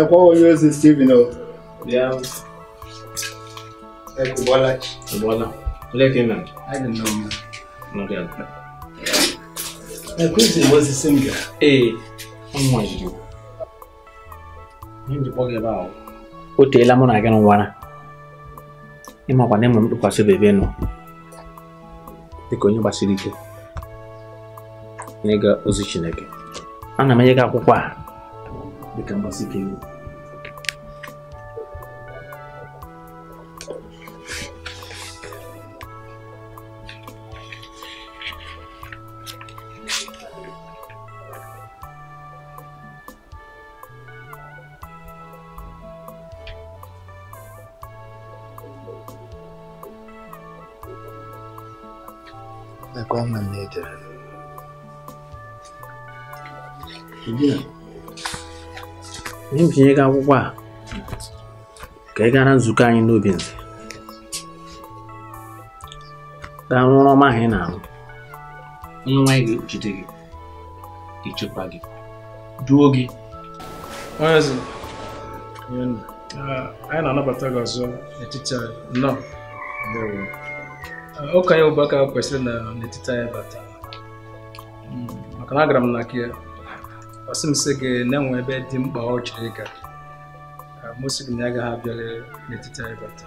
na né, qual eu estive no. Né? Yeah. É Kubola. Kubola. Olha aqui, man. I don't know, man. Não quero. A coisa was a singer. Ei, um anjo. Hindi po gaba o. Otela mo é E ganun wana. Ima kwa nemo mtu kwa sebe beno. Iko nyumba sirike. Nega ozi Chineke. Ana menye ka a dịka mgbasike iwu tinye gị akwụkwọ a ka ị gara nzukọ anyị n'obi nze gaa rụọ ọma ahụ ị na-arụ onye nwanyị ga-ekpuchite gị ichekwa gị duo gị eze anyị na-anabata gị ọzọ n'etiti anyị nọ ụka ya ụbaka kwesịrị n'etiti anyị bata hmm, maka na agara m na ya ọ sị m sị gị na-enwe ebe dị mkpa ọ chọrọ ịga m sị gị na agaghị abịala n'etiti anyị bata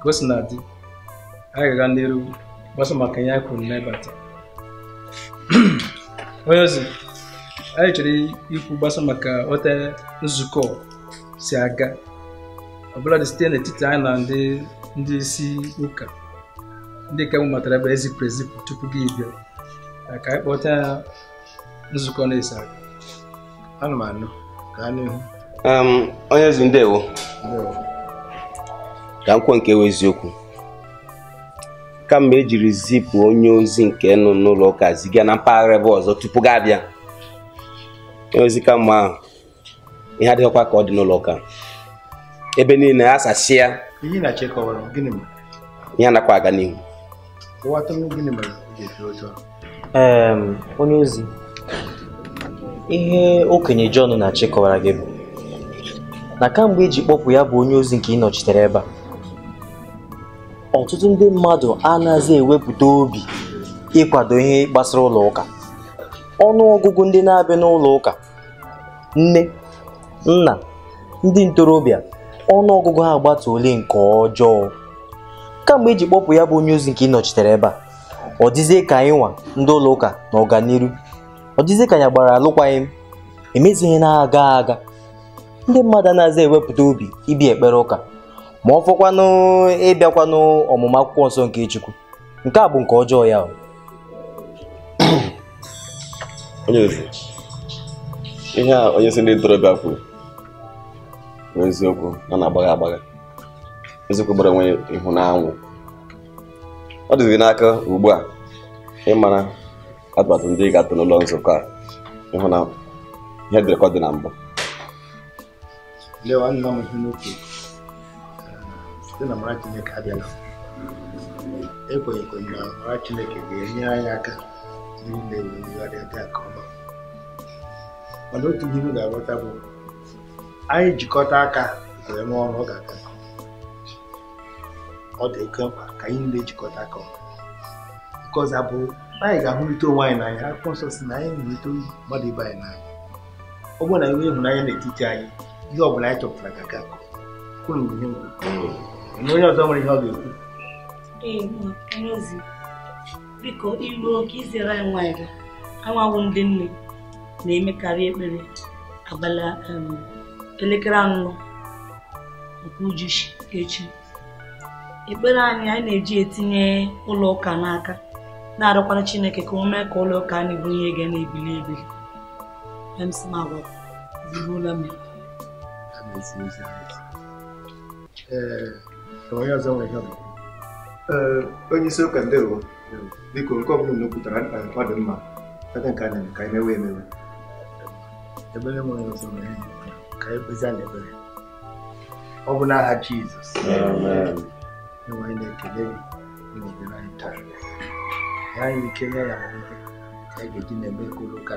ka o si na dị anyị ga-aga n'iru gbasa maka ihe anyị kwuru na ịbata onye ozi anyị chọrọ ikwu gbasa maka ote nzukọ si aga ọbụladị dị site n'etiti anyị na ndị ndị isi ụka ndị ka m matara ebe ezipụ ezipụ tupu gị bịa ka anyị kpọta nzukọ na-esi aga ana m anụ gaa n'ihu onye ezi ndewo ka nkwo nke wee eziokwu kama ejiri zipụ onye ozi nke nụ n'ụlọ ụka ziga na mpaghara ebe ọzọ tupu gị abịa ozi ka mma ahụ ihe adịghịkwa ka ọ dị n'ụlọ ụka ebe niile a sachi ya ihe anakwa aga n'ihu onye ozi ihe okenye Jọn na-achị kọwara gị bụ na kamgbe eji kpọpụ ya bụ onye ozi nke ị ebe a ọtụtụ ndị mmadụ anaghịzi ewepụta obi ịkwado ihe gbasara ụlọ ụka ọnụ ọgụgụ ndị na-abịa n'ụlọ ụka nne nna ndị ntorobịa ọnụ ọgụgụ ha agbata ole nke ọjọọ kamgbe eji kpọpụ ya bụ onye ozi nke ị nọchitere ebe a ọ dịzie ka anyị nwa ndị ụlọ ụka na ọganiru ọ dịzị ka ya gbara alụkwaghị m emezighị na-aga aga ndị mmadụ anaghịzi ewepụta obi ibi ekpere ụka ma ọ fọkwanụ ịbịakwanụ ọmụmụ akwụkwọ nsọ nke Chukwu nke a bụ nke ọjọọ ya onye eze ihe a onye isi ndị ntorobịa kwuru bụ eziokwu na na-agbagha agbagha eziokwu gbara onwe ihu na ọ dịzị n'aka ugbu a ịmara atụmatụ ndị ga-atụ n'ụlọ nzukọ a ịhụ na ihe dịrịkọ dị na mbụ lewa nna m ihe site na mara chineke abịala ekwenyekwere na mara chineke ga-enyere anyị aka n'ile wegharịa dị aka ọma mana otu ihe m ga-aghọta bụ anyị jikọta aka wee mee ọrụ ọ ga-aga ọ dị oke mkpa ka anyị niile jikọta aka ọma kọza bụ anyị ga-ahụrịta onwe anyị n'anya akwụkwọ nsọ si na anyị hụrịta mmadụ ibe anyị n'anya ọ bụrụ na enwe ịhụnanya n'etiti anyị ihe ọ bụla anyị chọpụtara ka ga akụ kwuru mgbe ihe na onye ọzọ nwere ihe ọ ga-ekwu biko iru oke izere anyị nwanyị gị anwawụ ndị nne na-emekarị ekpere abalị elekere anụ nke ujuchi echi ekpere anyị anyị na-eji etinye ụlọ ụka n'aka na-arịọkwara chineke ka o mee ka ụlọ ụka anyị bụ ihe ga na-ebili ebi ee onye isi ụka ndị biko nke ọbụla na okwutara mkpa mma ebe nke a na-eme ka anyị mewe emewe ebere nwere ọzọ ka e anyị kpezi ọ bụ n'aha Jizọs enwe anyị na-ekele gị na-ebere anyị taa anyị kenya ya nwoke anyị ga-eji na-eme ka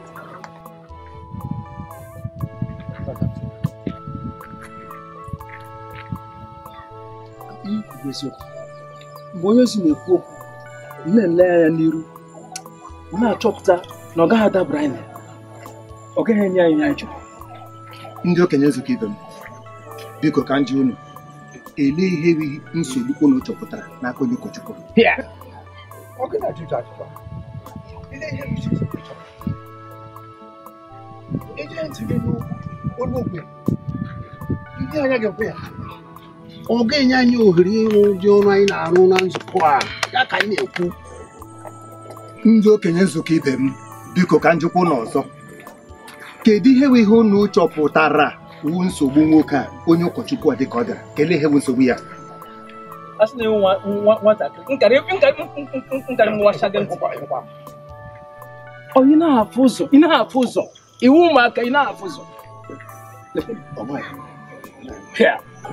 eziokwu mgbe onye ozi na-ekwu okwu na-ele anya n'iru na-achọpụta na ọ gaghị adabara anyị ọ gaghị enye anyị anyị chọrọ ndị okenye nzukọ ibe m biko ka ndị unu ele ihe erighị nsogbu unu chọpụtara n'aka onye ụkọchukwu ndị anya ga-ekwe ya ọ ga-enye anyị ohere ịrụ ndị ọrụ anyị na-arụ na nzukọ a ya ka anyị na-ekwu ndị okenye nzukọ ibe m biko ka njikwa n'ọzọ ọzọ kedu ihe ihe unu chọpụtara wu nsogbu nwoke a onye ụkọchukwu a dịka ọ dara kelee ihe nsogbu ya ụzọ iwu ụmụaka ị na-afụ ụzọ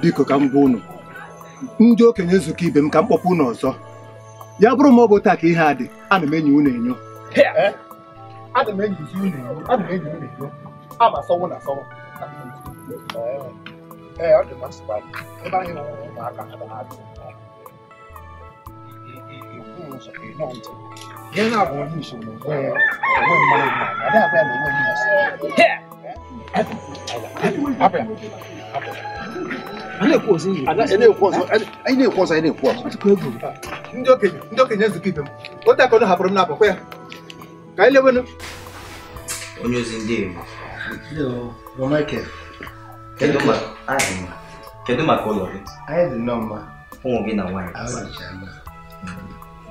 biko ka m gwa ụnụ. ndị okenye nzukọ ibe m ka m kpọpụ ọzọ ya bụrụ ma ọ bụ taa ka ihe a dị ana m enyi na enyo Yeah. na-ekwu ozi ọzọ anyị na-ekwu ọzọ anyị na-ekwu ọzọ ndị okenye ndị okenye nzukọ ibe m ote akọnụ hapụrụ m na abakwa ya ka anyị lewenụ onye ozi ndị kedu maka ụlọ gị anyị dị nnọọ mma ụmụ gị na nwaanyị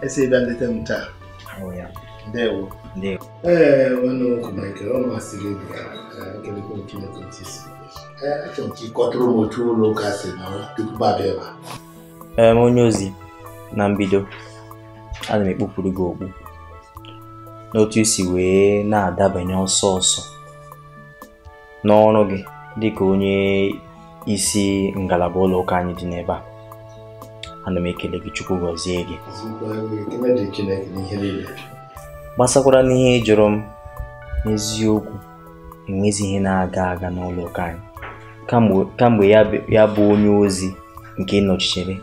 esi ịbịa nleta m taa ndewo ee nwanne ọkụ Michael ọ masịrị gị ka kelekwa Chineke ntị si ee onye ozi na mbido ana m ekpupụrụ gị okpu n'otu isi wee na-adabanye ọsọ ọsọ n'ọrụ gị dị ka onye isi ngalaba ụlọ ụka anyị dị n'ebe a ana m ekele gị chukwu gọzie gị gbasakwara n'ihe jụrụ m n'eziokwu enwezi ihe na-aga aga n'ụlọ ụka anyị kamgbe ya bụ onye ozi nke nọchichere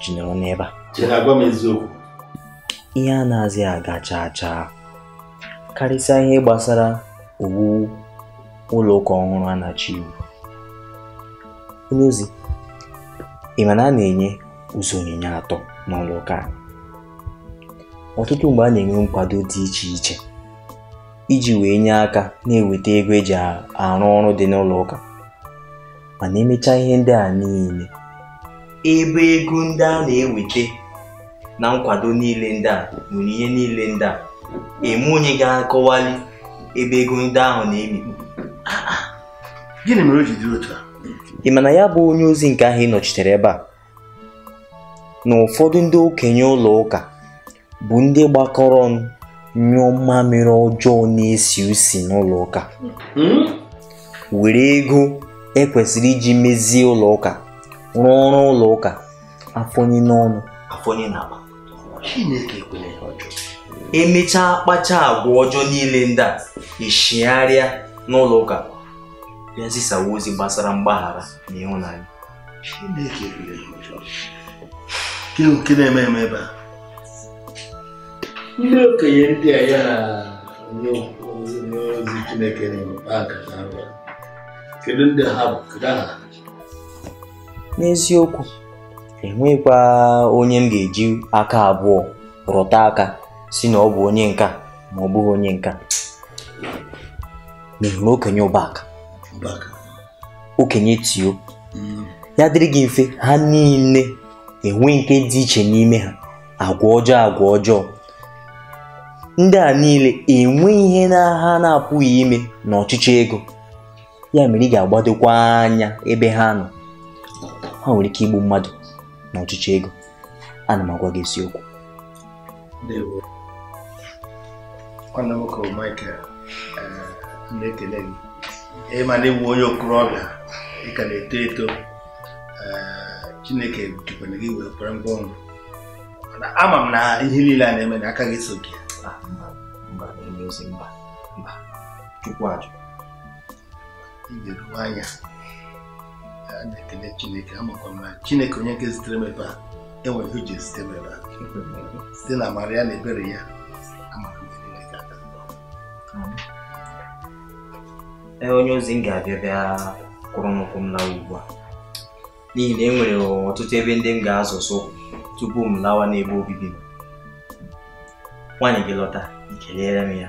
ji nọrọ n'ebe a ihe a na-azị aga chaa chaa karịsịa ihe gbasara owuwu ụlọ ụka ọhụrụ a na-achọ iwu onye ozi ị ma na a na-enye ụzọ onyinye atọ n'ụlọ ụka ọtụtụ mgbe a na-enwe nkwado dị iche iche iji wee nye aka na-eweta ego eji arụ ọrụ dị n'ụlọ ụka mana emechaa ihe ndị a niile ebe ego ndị a na-eweta na nkwado niile ndị a nwere ihe niile ndị a eme onye ga-akọwali ebe ego ndị ahụ na-emikpu gịnị mere otu a ị ma na ya bụ onye ozi nke ahụ ị nọchitere ebe a na ụfọdụ ndị okenye ụlọ ụka bụ ndị gbakọrọ nyụọ mmamịrị ọjọọ na-esi usi n'ụlọ ụka hmm? were ego ekwesịrị iji mezie ụlọ ụka rụọ ọrụ ụlọ ụka afọnyi n'ọnụ afọnyi n'akpa não, ekwela ya não, emechaa kpacha agwa ọjọọ niile ndị a ishigharịa n'ụlọ ụka bịa zisawa ozi gbasara mgbaghara na ịhụnanya chineke ekwela não, ọjọọ nke na-eme eme ebe a ndị okenye ndị a ya na ndị ozi chineke na-emepe aka na-arụ n'eziokwu enwekwa onye m ga-eji aka abụọ rụta aka si na ọ bụ onye nka ma ọ bụghị onye nka n'ihi na okenye ụbaka okenye tio hmm. ya dịrị gị mfe ha niile enwe nke dị iche n'ime ha agwa ọjọọ agwa ọjọọ ndị a niile enwe ihe na ha na-apụghị ime n'ọchịchị ego ya mere ị ga-agbadokwa anya ebe ha nọ ha nwere ike igbu mmadụ na ọchịchị ego ana m agwa gị isiokwu nwanne eh, onye okorobịa na-eto eto eh, chineke gị wee kwere ị ga anya a na-ekele chineke amakwa m na chineke onye nke zitere m ebe a enwere ihe o ji m ebe a site na amara ya na ebere ya ee onye ozi m ga-abịa bịa kwụrụ nnukwu ụkwụ m lawa ugbu a n'ihi na e nwere ọtụtụ ebe ndị m ga-azụsụ tupu m lawa n'ebe obibi m nwaanyị gị lọta ikeleere m ya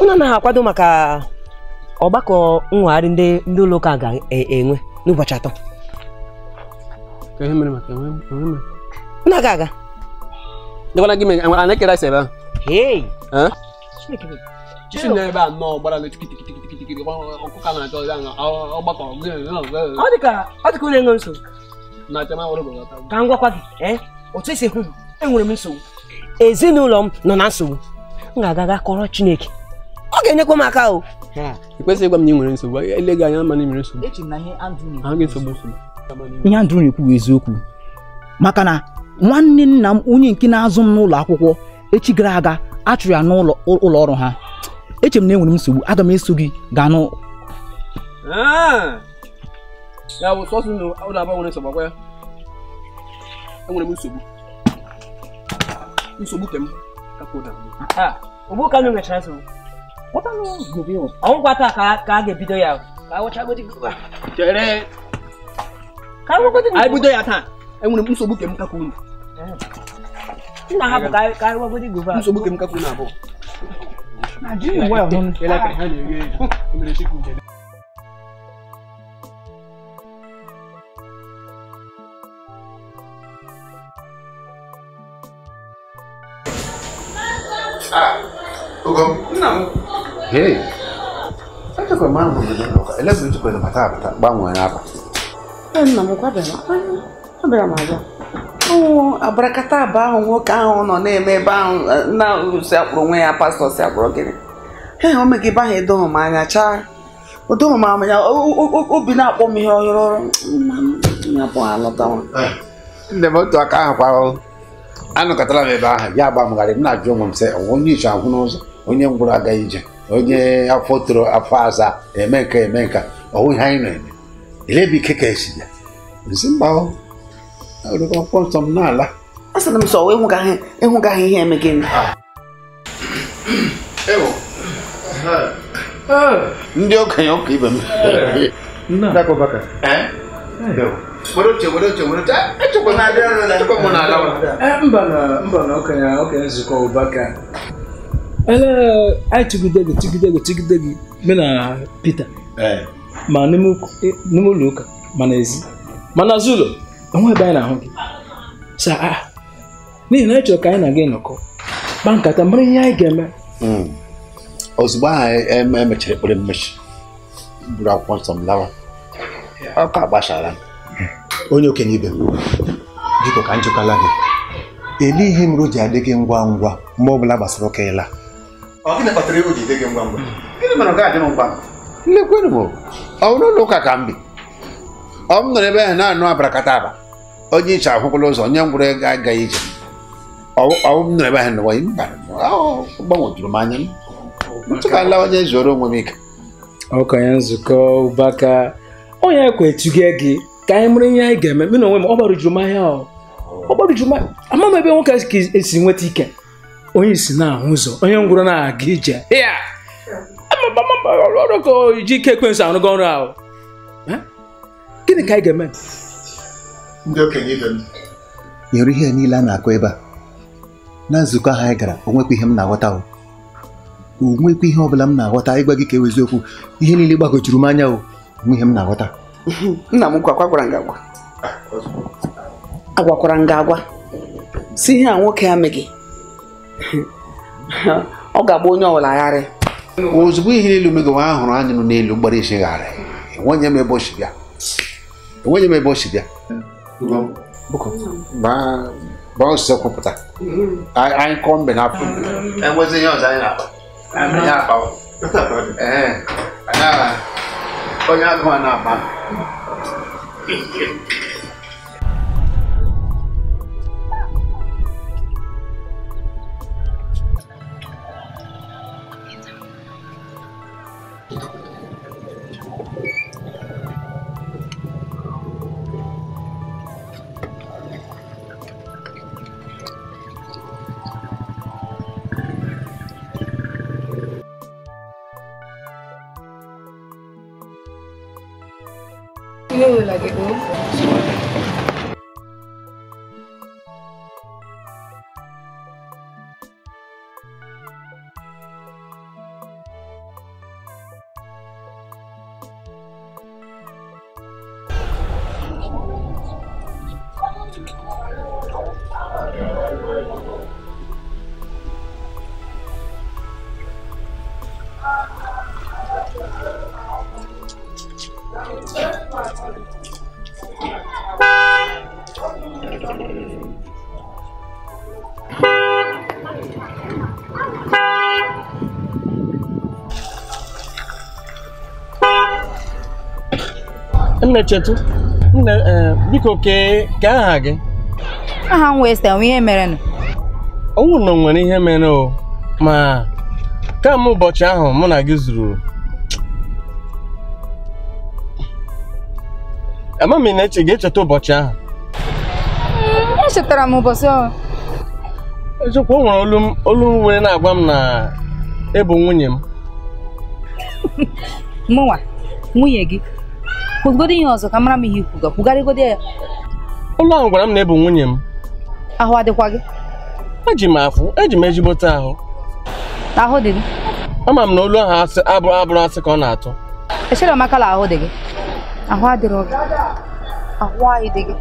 unu anaghị akwado maka ọgbakọ nwegharị ndị ndị ụlọ ụka ga-enwe n'ụbọchị atọ na aga aga dịkwana gị a na-ekere asa ebe ahụ ọ dị ka onye enwe nsogbu ka m gwakwa gị otu esi ekwu enwere m nsogbu ezinụlọ m nọ na nsogbu m ga-aga ga kọrọ Chineke ọ ga-enyekwa m aka o ịkwesịghị ịgwa m na ị nwere nsogbu ele gị anya ama na ị nwere nsogbu ihe Andrew na-ekwu bụ eziokwu maka na nwanne nna m onye nke na-azụ m n'ụlọ akwụkwọ echi gara aga achụrụ ya n'ụlọ ọrụ ha eche m na enwere m nsogbu aga m eso gị gaa n'ụ ah! nsogbu e ka m nwechara ah, nsogbu wata no gobe yau an kwata ka ka ga bidoya ka wata godi goba tere ka ga godi ai bidoya ta ai mun muso buke mun kakuni ina habu ka ka ga godi goba muso buke mun kakuni abo na ji wa hun ela ka hali ge mun shi ku Ah. Ogo? Nna m. Echekwa e, m ahụ Ọ e, m nwoke ahụ nọ na-eme ebe ahụ na si akpụrụ onwe ya pastọ si akpụrụ gịnị. o mege ebe ahụ edoghị m anya chaa. m obi na-akpọ m ihe ọhụrụ ọrụ. Nne eh. m otu aka ahụ kwa anọkọtara m ebe ahụ ya agbamgharị m na-ajụ onwe m sị onye ahụ n'ụzọ. onye ngwụrụ aga ije onye afọ toro afọ aza eme nka eme nka ọwụ ihe anyị na-eme elebi ike ka esi ya nsi mba akwụkwọ nsọ m n'ala a sịrị m sọ ihe eme gịnị ah. ndị okenye ụka ibe m mba na okenye nzukọ ụbaka ee anyị chịgide gị chịgide gị chịgide gị mena Pita ma e, n'ime ụlọ ụka ma ezi ma n'azụ ụlọ onwe ebe anyị na-ahụ gị n'ihi na anyị chọrọ ka anyị na gị nọkọ kpaa nkata mara ihe anyị ga-eme hmm. ozugbo ahụ e, e, emechara ekpere mmechi buru akwụkwọ nsọ m lawa ọka gbachara onye okenye ibe m biko ka njikọla gị elighị m roji adịghị ngwa ngwa mgbe ọ bụla gbasara ụka ịla gịnị kpatara iwu ji gị ngwa ngwa gịnị mere ọ ga-adị m ngwa lekwenụ m ọ bụrụ ụlọ ụka ka m bi ọ m nọrọ ebe ahụ na-anụ abarakata aba onye iche akwụkwụla ụzọ onye ngwụrụ ego agaghị ije ọwụ m nọrọ ebe ahụ nọwa mba gbanwetụrụ m anya ntụka nlawanye zuoro onwe m ike ọkanye nzukọ ụbaka onye kwechuge gị ka anyị mụrụ ihe anyị ga-eme mena onwe m ọ gbarujuru m ahịa ọ gbarujuru m ama m ebe nwoke ka esi nweta ike onye si na-ahụ ụzọ onye ngwụrụ na-aga ije ya ji ike ekwensụ arụgo ọrụ ahụ gịnị ka anyị ga-eme ndị okenye ibe m nyere ihe niile a na-akụ ebe a na nzukọ ahụ anyị gara onwekwa ihe m na-aghọta onwekwa ihe ọ bụla m na-aghọta ịgwa gị ka ewe eziokwu ihe niile gbagojuru m anya o onwe ihe m na-aghọta nna m nkwa gwara m agwa ah, agwakwara m gị agwa si ihe a nwoke amị gị ọ ga-agba onye ọbụla agharị ozugbo ihe niile omego nwa ahụrụ anyị nọ n'elu gbara isi gharị enwenye m ebe o si m ebe o si bịa baa ọsịsọ kwupụta anyị kọọ mbe na enwezi anyị na-akpa onye agụụ na-akpa we'll nne Chetu nne biko kee ka aha gị aha m wee sị ihe mere nụ ọnwụ na nwere ihe mere o ma m ụbọchị ahụ mụ na gị zuru ama m na-eche ga-echeta ụbọchị ahụ hmm, echetara m ụbọchị ahụ eziokwu o nwere olu m na-agwa m na ịbụ e nwunye m mụnwa nwunye gị kwugodo ihe ọzọ ka mara m ihe ikwuga godi ya ụlọ ahụ gwara m na ebu nwunye m ahụ adịkwa gị eji m afụ eji m ezigbote ahụ ahụ dị gị ama m na olu ahụ abụrụ abụrụ asị ka ọ na-atụ echere makala ahụ dị gị ahụ adịrọ gị ahụ anyị dị gị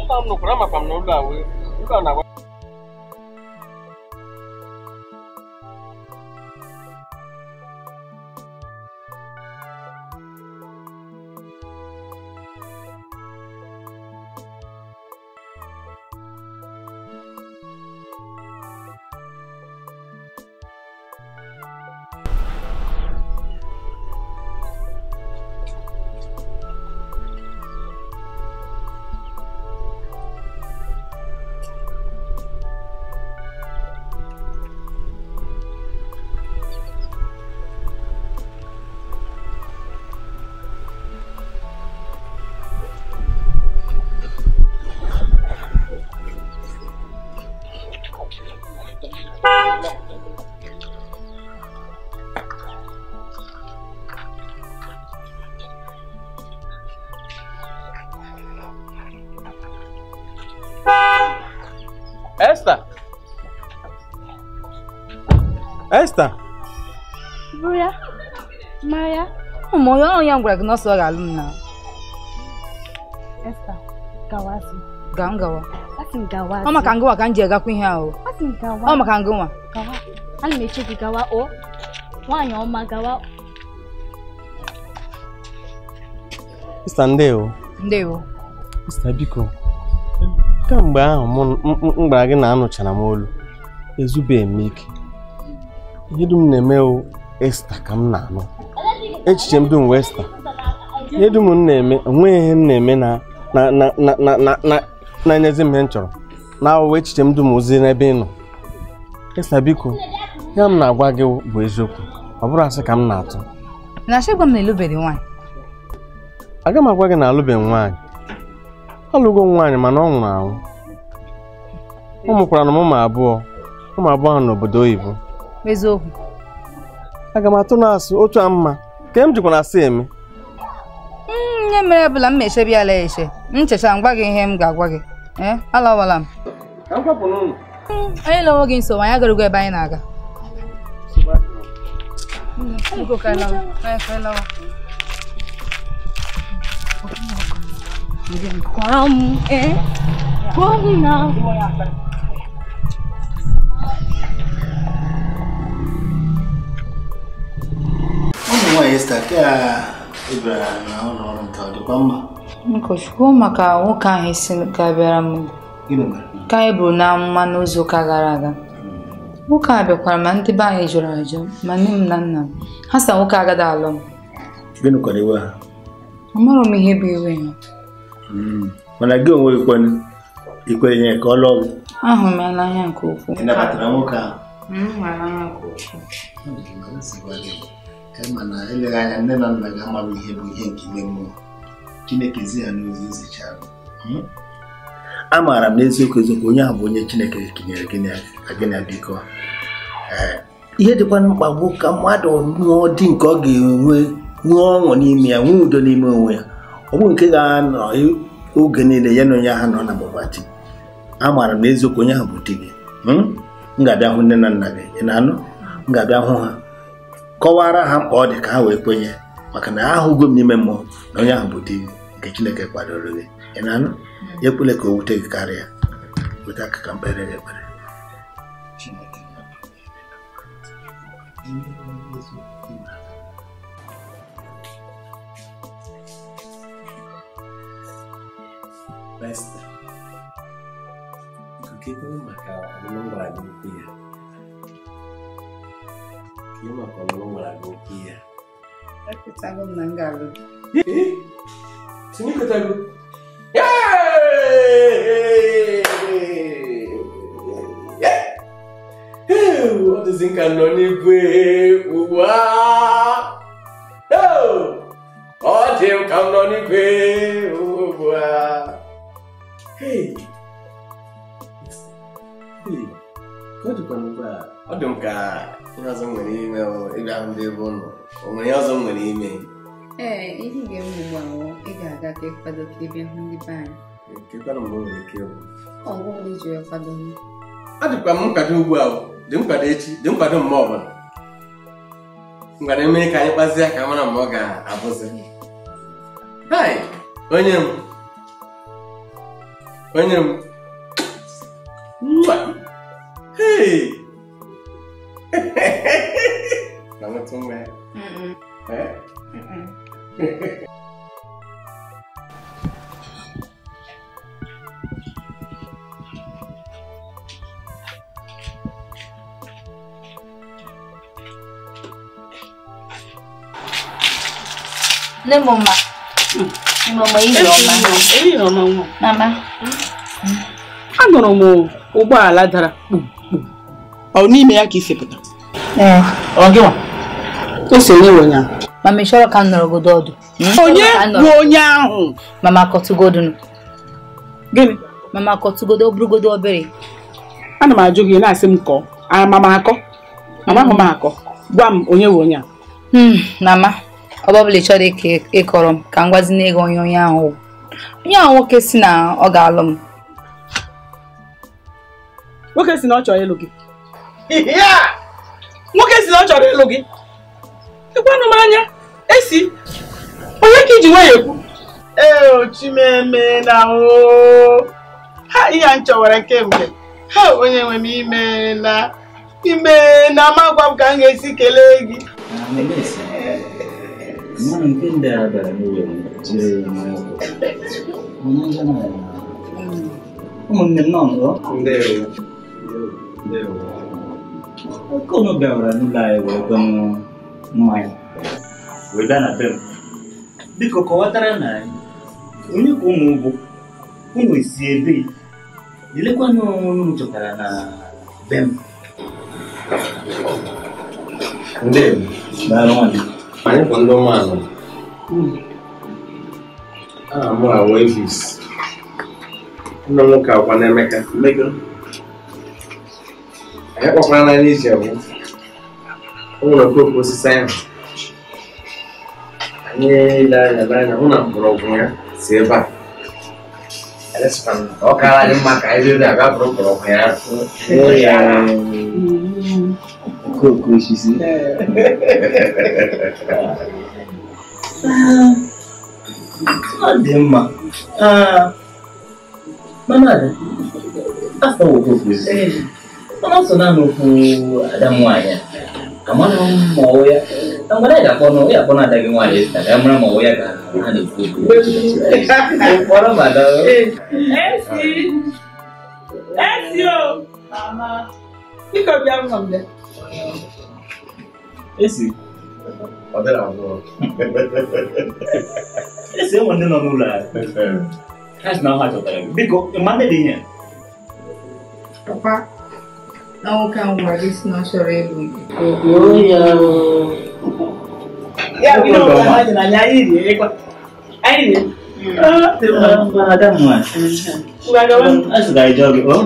Ụlọ m nụkwara makwa m na ahụ ebe na-agwa Esther. Esther. Bụya. Maya. Ụmụ onye ọrụ ya gwara gị na ọsọ ga-alụ m na. Esther, gawazi. Ga m gawa. Asị m gawazi. Ọ maka ngụwa ka m ji agakwa ihe ahụ. Asị m gawa. Ọ maka ngụwa. Gawa. Ana m eche gị gawa o. Nwaanyị ọma gawa. Ista ndewo. Ndewo. Ista biko. kemgbe ahụ m gwara gị na anụchara m olu ezubeghị m ike ihe dum na-eme esta ka m na-anụ echiche m dum wee esta ihe dum m na-eme onweghị ihe m na-eme na-enyezi m ihe m chọrọ na awụwa echiche m dum ozi n'ebe ị nọ esta biko ya m na-agwa gị bụ eziokwu ọ bụrụ asị ka m na-atụ na-achọ m na ịlụbeghị nwaanyị aga m agwa gị na alụbeghị nwaanyị ọ lụgo m nwaanyị mana ọ nwụrụ anwụ ọ mụkwara na ụmụ abụọ ụmụ abụọ ahụ n'obodo oyibo eziokwu aga m atụ na otu a mma ka m jikwa na asị eme hmm, ihe mere ebula m na ala eche nchecha m gwa gị ihe m ga-agwa gị eh, alawala m hmm, onye lọwo gị nsogbu anyị ebe anyị na-aga hmm, 이젠 광에 광나 ụmụ nwaanyị sta ke ịbịara na ụlọ ọrụ nke ọ dịkwa mma nkọchukwu maka nwoke ahụ isi ka bịara m ka e na amụma n'izu ụka gara aga nwoke ahụ bịakwara ma ndị be jụrụ ma nne m na nna m ha sa nwoke agada m ihe bụ ha Hmm. mana gị onwe ikwenye ka ọ lụọ ahụ m anya nke ukwuu nabatara nwoke ahụ hmm, mana eleghị anya nne na nna nke ime mmụọ hmm? onye ahụ bụ onye chineke kenyere biko ihe dịkwa mkpa bụ ka mmadụ nụọ dị nke ọ ga-enwe nwee ọṅụ n'ime ya nwee udo n'ime onwe ya onwe nke ga-anọ oge niile ya na onye ahụ nọ na mabati amaara m na eziokwu onye ahụ bụ di hmm? m ga-abịa hụ nne na nna gị ị na-anụ m ga-abịa hụ ha kọwara ha mkpa ọ dị ka ha wee kwenye maka na ahụgo m n'ime mmụọ na onye ahụ bụ di nke Chineke kwadoro gị ị na-anụ ya ekwele ka o wute gị karịa weta aka ka mkpere gị ekpere pesta. Begitu maka memang lagu dia. Kini maka memang é que Aku tahu menanggalu. que tá tahu. Ọ dịzị nka nọ n'igwe que uau oh dị nka nọ n'igwe. ọ dị m ka ihe ọzọ nwere ime ịbịa hụ ndị ebe ụlọ o nwere ihe ọzọ nwere ime ee ihe ga-eme ugbu a ị ga-aga ka ịkwado ka ịbịa hụ ndị be anyị ọ dịkwa m m. nkwado ugbu a dị nkwado echi dị nkwado mgbe ọbụla ngwado emere ka anyị kpazie ka mara ma ọ ga-abụzi onye m onye m nne m ma anụrụ m ụgbọala dara ọ n'ime ya ka isi pụta ose onye nwe ya mama ịchọrọ ka m nọrọgodo ọdụ hmm? onye bụ onye ahụ mama kọtụgodo gịnị mama kọtụgodo bụrụgodo obere A na m ajụ gị na-asị m kọọ "A amama akọ amaghị m akọ gwa m onye nwe onye a hmm, mama ọba ọbụla ịchọrọ ịkọrọ m ka m gwazina ego onye onye ahụ onye ahụ nwoke si na ọ ga-alụ m nwoke si na ọ chọrọ ịlụ gị nwoke si na ọ chọrọ ịlụ gị ịkwanụ m anya esi onye ka iji nwanyị ekwu ee chimeme na ha ihe m chọwara kemgbe ha onye nwe m ime na ime na amagwa m ka m ga-esi kelee gị 何であれ10万円同じじゃないな、うん、もう何なんだでよでよこのベオラのライブがもうないウィダナベムビココワタラナイウニコムボコムイシエビ nilikuwa nimechokana na bem ndio baraona anyị bụ ndị ụmụanụ aha m awa evis nna m nwoke akwa na-emeka anyị kpakwara n'anya iji abụ o nwere okooko osisi ahụ anyị ile anya n'anya hụ na mgbọrọgwụ ya si ebe a ọ kaara anyị mma ka anyị rere abịa bụrụ mgbọrọgwụ ya ahụ Cook when she see. Ọdịmma, mama afọ oke kwụzi, mana ọsọ naanị okwu ada m nwaanyị a, amara m ma ọwụ ya, na mgbe anyị ga-akpọ na ya akpọ na ada gị nwaanyị esta esi ọ dịrị abụọ esi enwe ndị nọ n'ụlọ ha si na ha chọtara biko mmadụ dị ihe papa na nwoke ahụ gwara gị si na chọrọ ịlụ gbuo ya ya bụ ihe ọbụla ha dị n'anya anyị rie ịkwa anyị rie Ada mwa. Azụrụ anyị jọgị, ọ?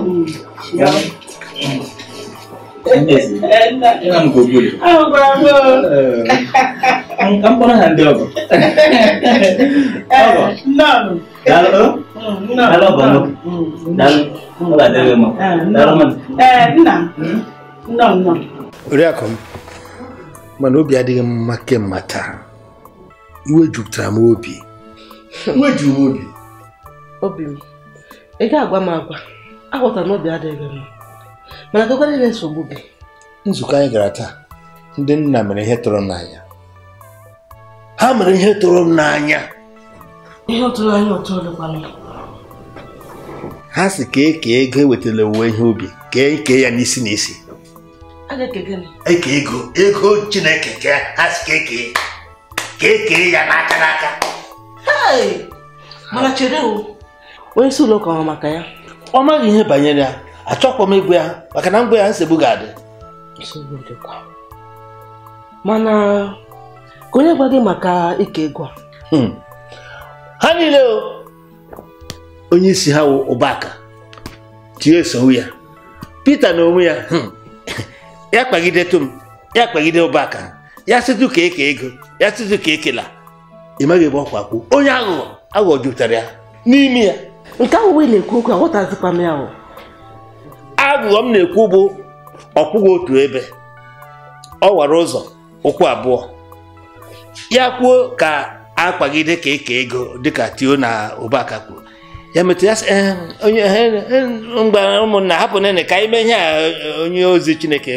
Ina mu gogo ne. Ah, bravo. An kan bana hande ba. Aba. Nam. Dalo. Dalo ba no. Dalo. Ba dalo mo. Dalo man. Eh, nna. Oriakọ m, mana obi adịghị mma kemgbe taa. Iwe jupụtara m obi. Obi m, ị ga-agwa m agwa, aghọta na obi adịghị mma. mana gịkwana ebe nsogbu gị nzukọ anyị gara taa ndị nna mere ihe tụrụ n'anya ha mere ihe tụrụ n'anya ihe ọtụrụ anyị ọtụ olukwana ha si kee eke ego ewetala owuwe ihe ubi kee eke ya n'isi n'isi eke e ego ego chineke ka ha si kee kee ka kee ya n'aka n'aka mana chere onye si ụlọ ụka ọ maka ya ọ maghị ihe banyere ya achọkwa m ịgwa ya maka na mgbe ya nsogbu ga-adị mana ka onye gwa gị maka ike ịgwa hmm. ha niile onye isi ha wụ ụbaka tie sowu ya Pita na onwe ya hmm, ya kpagidetụ m ya kpagide ụbaka ya sịtụ ka eke ego ya sịtụ ka ekela ị maghị ebe ọkwa kwuo onye aghụghọ aghụghọ jupụtara ya n'ime ya nke ahụ wee na-ekwu okwu aghọtazikwa m ya ahụ abụọ m na-ekwu bụ ọkwụghị otu ebe ọ wara ụzọ ụkwụ abụọ ya kwuo ka akpagide ka eke ego dịka tio na Obaka kwuru ya metụ ya onye mgba ụmụnna hapụ nene ka anyị ihe a onye ozi Chineke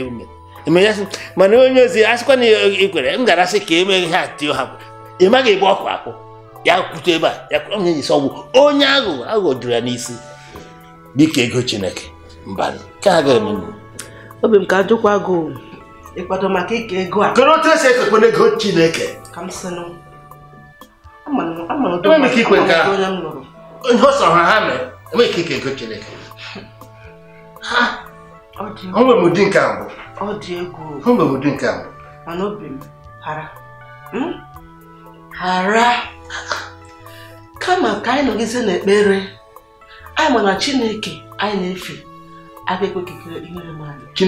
eme ya mana onye ozi asịkwa na ikwere m gara asị ka e mee ihe a tio hapụ ị maghị ebe ọkụ akwụ ya kwute ebe a ya kwụrụ onye ọgwụ onye aghụghọ aghụghọ juru ya n'isi dịka ego Chineke mbanụ nke a ga-eme obi m ka ajụkwa gị ịkwado maka ịka ego a kedu otu esi ekekwe n'ego chineke m ihe ọsọ ha ha mere enweghị ike ike ego chineke Ha! onwere m ụdị nke abụọ onwere m ụdị nke abụọ mana obi m hara hmm? hara kama ka anyị nọgizie n'ekpere anyị ma chineke anyị na-efe avec ga-ekwe Qui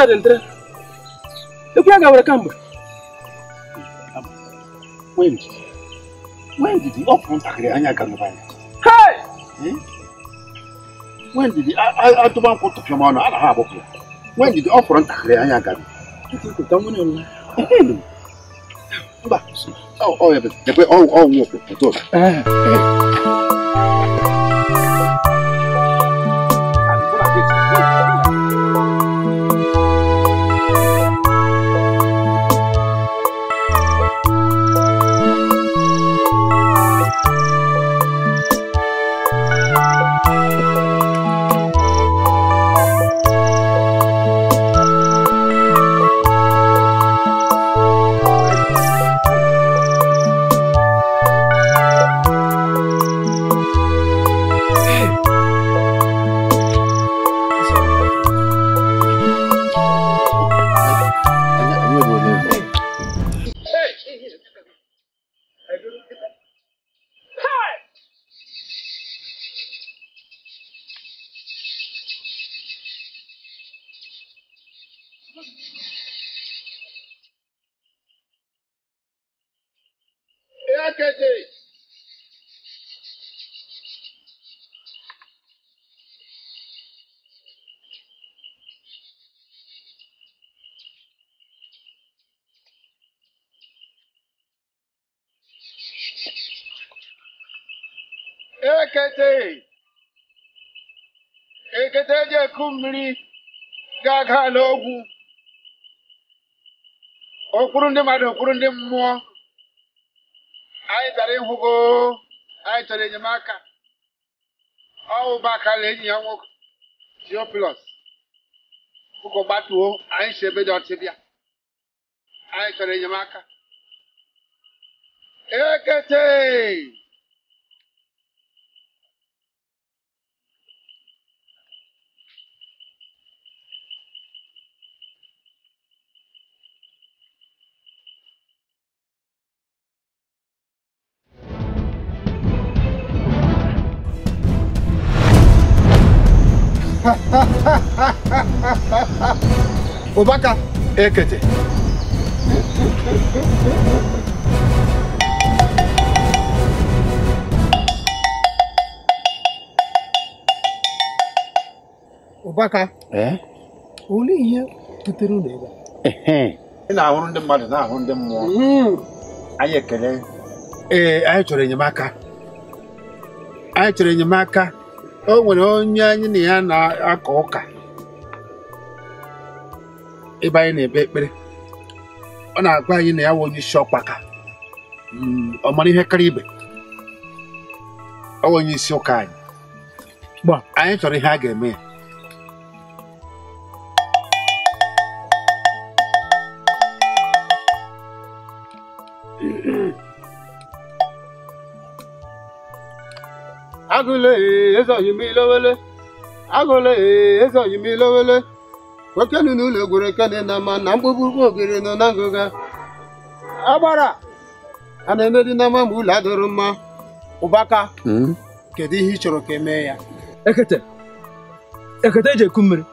sa daldara duk ya gawar kan ba when when did the upfront agree anya kan ba when did the a to ban ko ha ba when did the upfront agree anya kan kiti ko tan wani wallahi ba oh oh ya da ko akụ mmiri ga-aga n'ogwu, okpuru ndị mmadụ okpuru ndị mmụọ anyị bịara ịhụgo anyị chọrọ enyemaka ọwụ bakala enyi ya nwoke Theophilus ụkọ gbatuo anyị si ebe dị ọtị anyị chọrọ enyemaka ekete ụbaka ekete ụbaka eh? olee ihe butere ụlọ ebe ị na-ahụrụ ndị mmadụ na-ahụ ndị mmụọ hmm. anyị ekele ee eh, anyị chọrọ enyemaka anyị chọrọ enyemaka o nwere onye anyị na ya na akọ ụka ebe anyị na-ebe ekpere ọ na-agwa anyị na ya nwe onye isi ọkpaka hmm, ọ mara ihe kara ibe ọ onye isi ụka anyị anyị chọrọ ihe a ga-eme ya agụle ezoghị m ilowele agụle ezoghị m ilowele kwekenu n'ụlọ egwere ekene na mma na mgbugbugbu ogiri nọ na ngụga agbara a na-emedi na mma ma ụlọ adịrụ mma ụbaka hmm? kedu ihe ị chọrọ ka emee ya ekete ekete eji eku mmiri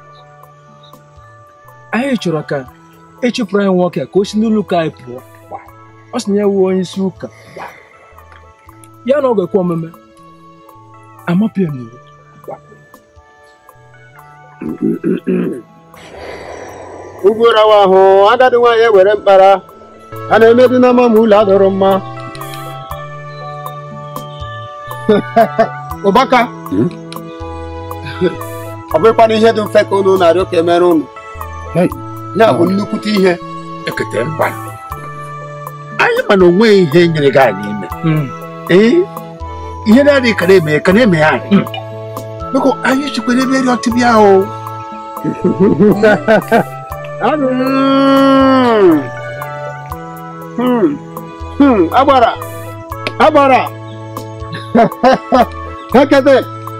anyị chọrọ ka ịchụpụrụ e anyị nwoke ka o si n'ụlọ ụka anyị pụọ ọ sị na ya wuo onye isi ụka ya na ọ ga-ekwe omume amapịa m iwu ugwu rawa ahụ agadi nwaanyị ewere mkpara a na-emebi n'ama ma ụlọ adọrọ mma ụbaka hmm? ọ bụrụkwa na ihe dị mfe ka unu na-arịọ ka emere unu ya bụ nnukwute ihe ekete mkpa anyị ma na onweghị ihe nyere gị anyị ime hmm ee ihe na-adị ka na-eme ka na-eme ya adị biko anyị chikwere ebe dị ọtị bịa o agbara agbara ekete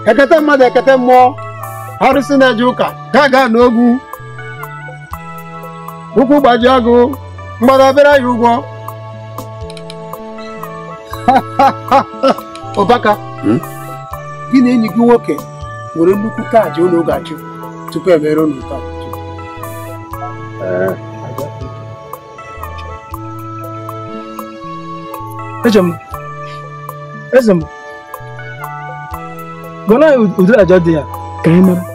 ekete mmadụ ekete mmụọ arụsị na-eje ụka ga ga n'ogwu ụkwụ gbajie agụ mgbada obere ya ụgwọ Ọbaka hmm? gị na enyi gị nwoke nwere nnukwu kaadị ụlọ ga-achụ tupu emere unu taa. Eze eh. m, eze m, gọnọ ụdịrị àjà dị ya ka anyị mara.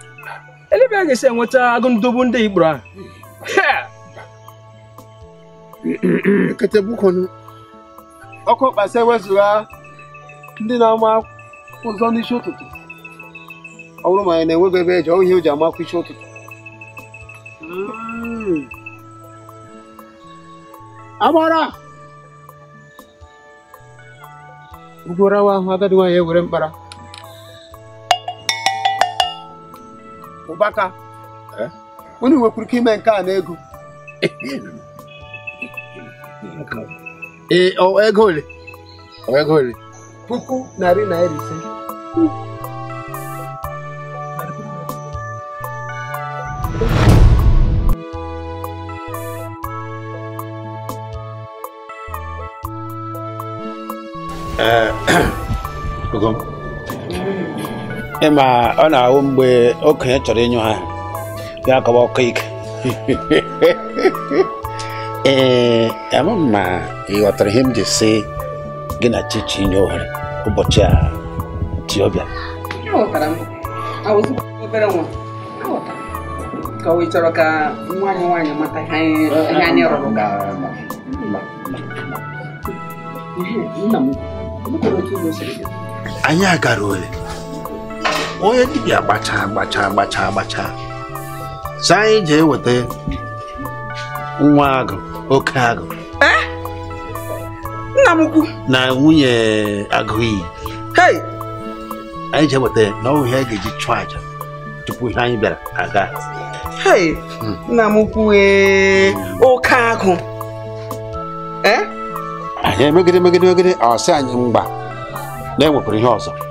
elebe a ga-esi enweta agụndogbu ndị Igbo ahụ ketebukwunu ọkụ mkpasa ewezụga ndị na-ama ụzọ n'isi ụtụtụ ọ bụrụ ma anyị na-enweghị ebe eji ihe o ji amakwa isi ụtụtụ hmm. agbara ugwarawa ahụ agadi nwaanyị ewere mkpara ụbaka eh? unu nwekwuru ike ime nke a na ego ee ego ole oh, ego ole puku narị naira ise Uh, ịma ọ na-ahụ mgbe okenye chọrọ ịnyụ ha ya akọwa ọkụ ike ee ama m ma ị ghọtara ihe m ji si gị na chichi ụbọchị a chi ọbịa anyị rụrụ anyị agara ole onye dibịa gbacha, gbacha, gbacha, gbacha, si anyị jee weta nwa agụ oke agụ eh? nna m ukwu na nwunye agụiyi anyị jee weta na ọ ihe ga-eji chụọ aja tupu ihe anyị bịara aga hmm. nna m ukwu e, oke agụ eh? anyị emegide megide megide ọsị anyị mgba na-ewepụrụ ihe ọzọ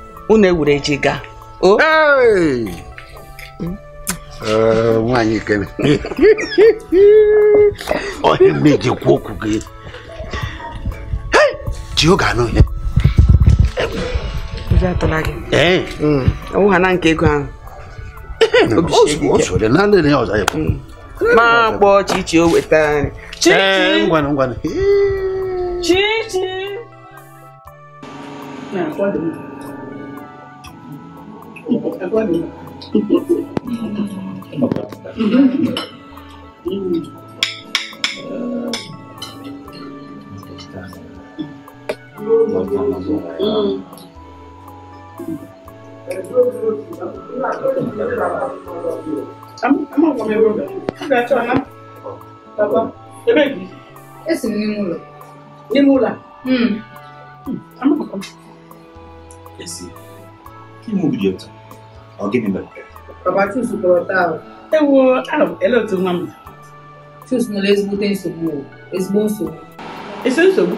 unu ewuru eji gaa o hmm? eh, nwaanyị kene onye mmeji kwuo okwu gị ji oge anụ ihe ọwụha na nke ego ahụ ma kpọọ chichi o wetara chichi eh, Agora. Esse menino lá. Menino lá. Hum. Esse. Que mundo de outro? ọ gịnị mere ahụ ele otu nwa m chus nwere ezigbote nsogbu ezigbo nsogbu esi nsogbu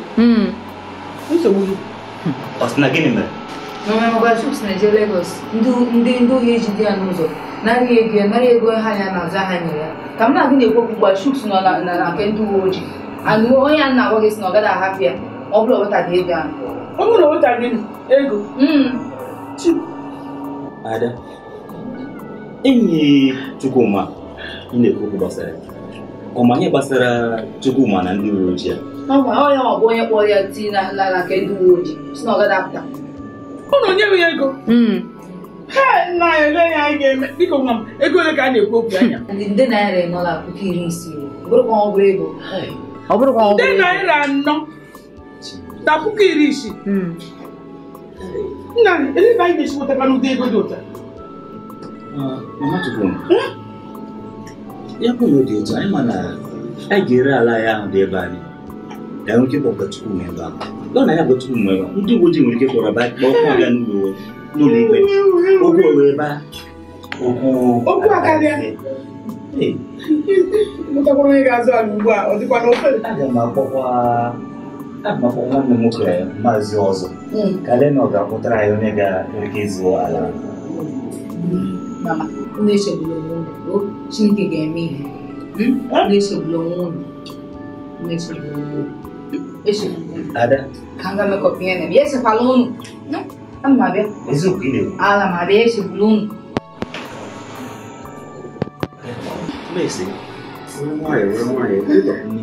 nsogbu gị ọ sị na gịnị mere n'ọnwa chus na-eje Lagos ndị ndị ji ejide ya n'ụzọ narị ego ya e narị ego ha ya na-aza ha nyere ya ka m na-agụ na-ekwu okwu chus nọ na nke ndị uwe ojii anụ onye a na-agwa gị si na ọ gaghị ahapụ ya ọ bụrụ wetaghị ego ahụ ọ bụrụ wetaghị ego hmm. Ada, enyi Chukwuma ị na-ekwu gbasara ọ ma ọmanye gbasara Chukwuma na ndị uwe ojii ya ọ bụ onye kpọrọ ya tii na ala ka ndị uwe ojii si na ọ gada apụta ụnụ nye m ya ego nna hmm. ya ole ya anyị ga-eme biko nwa m ego ole ka a na-ekwu okwu anya ndị nde naira ịnọla puku iri isii ọ bụrụ ego ọ bụrụkwa ọ bụrụ ego nde naira anọ na puku iri isii hmm. Nna, elebe anyị na-esi wetara n'ụdị ego dị ụta. Ah, mama Chukwu, ya bụ na dị ụta, anyị ma na anyị ga-ere ala ya ahụ dị ebe anyị. Ka anyị nwere ike Chukwu nwee ebe ahụ. Lọ na ya bụ Chukwu nwee ndị uwe ojii nwere ike kpọrọ ba kpọọ aga n'ụlọ n'ụlọ ikpe. Okwu wee ba. não akarịa. Mụtakwara onye ga-azụ ala ugbu a, ọ dịkwa n'ofe. Aga m akpọkwa maka ah, nwa nne nwoke maazị ọzọ kalena ọ ga-akpụtara anyị onye ga-eke izu ala Chineke ga-eme ihe echegbula unu ala ma bịa echegbula unu Nwaanyị nwere nwaanyị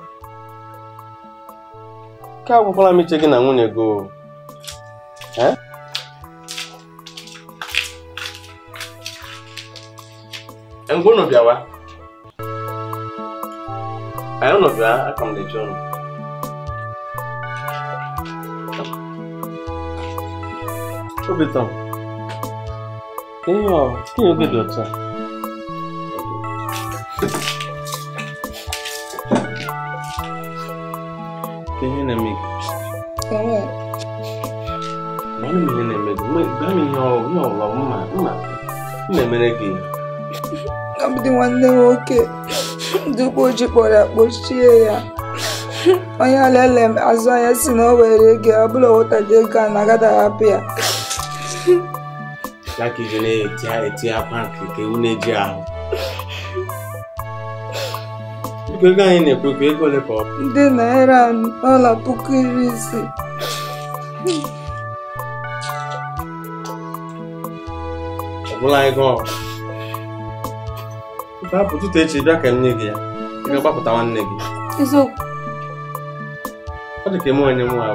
ka agwakwala m iche gị na nwunye gị ngwa unu bịawa anyị unu bịa aka m na-eche unu obitom ihe ọ ihe oge dị otu a ihe na-eme gị ọbụdị nwanne nwoke ndị ụgbọ ojii kpọrọ ya kpochie ya onye olele m azụ anya si na o were ego ọ bụla wụtara ego a na-agada hapụ ya eti akwa nke ewu na-eji ahụ ego anyị na ekwe bụ ego ole ka ọ bụ naira ọla puku iri ise ọbụla ego ọ ụtụtụ echi bịa ka nne gị ya ị ga-agbapụta nwanne gị ọ dị ka eme onye nwa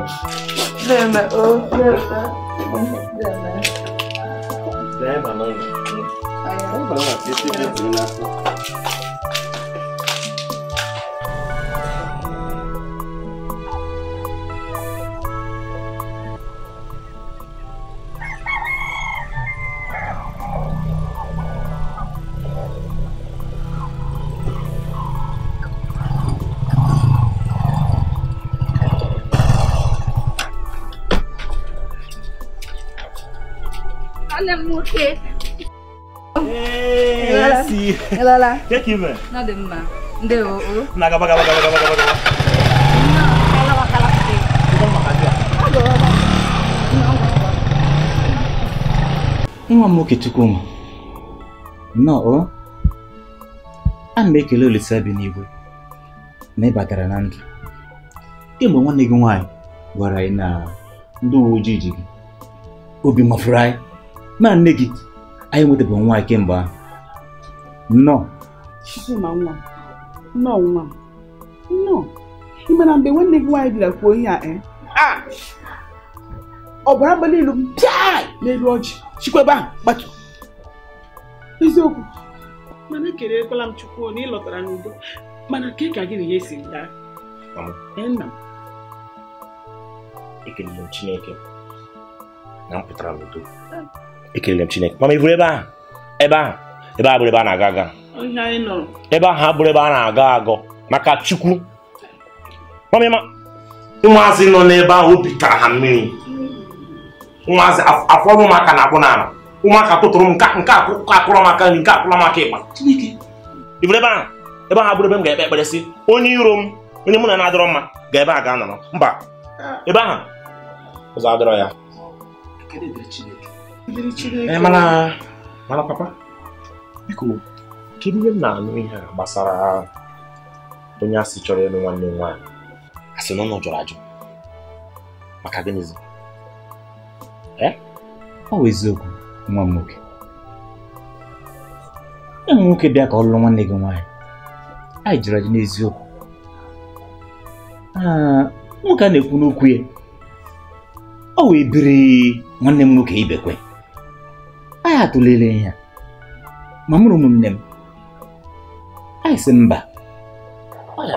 abụ okay. Esi. Elala. mma. Ndị o o. Na Nwa m nwoke Nnọọ. a m ekele Olise bi n'igwe na ị na ndụ. Kemgbe nwanne gị nwaanyị gwara anyị na ndị uwe ojii ji obi mafuru anyị na nne gị anyị nwetabeghị nwa anyị kemgbe ahụ nnọọ Chizuma nwa nnọọ nwa nnọọ ị mana mgbe nwanne gị nwaanyị bịara kwuo ihe a ọbara abalị ilu pịa n'elu ọjị ebe ahụ gbatu eziokwu mana kere ekerekwala m chukwu na ị lọtara n'udo mana ka ka gị na ya esi daa nna m ekelere m chineke na m pụtara n'udo ekelere m chineke mama ivuru ebe ahụ ebe ahụ ebe ahụ bụrụ ebe a na-aga aga ebe ahụ abụrụ ebe a na-agọ agọ maka chukwu ụmụazị nọ n'ebe ahụ obi tara ha mmiri ụmụazị afọrọ ụmụaka na-abụ n'ala ụmụaka tụtụrụ m nke akụrụ maka nri nke akụrụ maka ịgba ivuru ebe ahụ ebe ahụ abụrụ ebe m ga-ekpe ekpere si onye iro m onye mụ na na-adọrọ mma ga ebe a ga-anọrọ mba ah. ebe ahụ ụzọ adọrọ ya mana mana papa biko kedu ihe m na-anụ ihe a gbasara onye asị chọrọ ịlụ nwanne m nwaanyị asị na ọ jọrọ ajụ maka gịnịzi ọ bụ eziokwu nwa m nwoke ụmụ nwoke bịa ka ọ lụrụ nwanne gị nwaanyị anyị jụrụ ajụ n'eziokwu nwoke a na-ekwu n'okwu ya ọ wee biri nwanne m nwoke ibekwe anyị atụlere ya ma mụrụ ụmụnne m anyị sị mba oge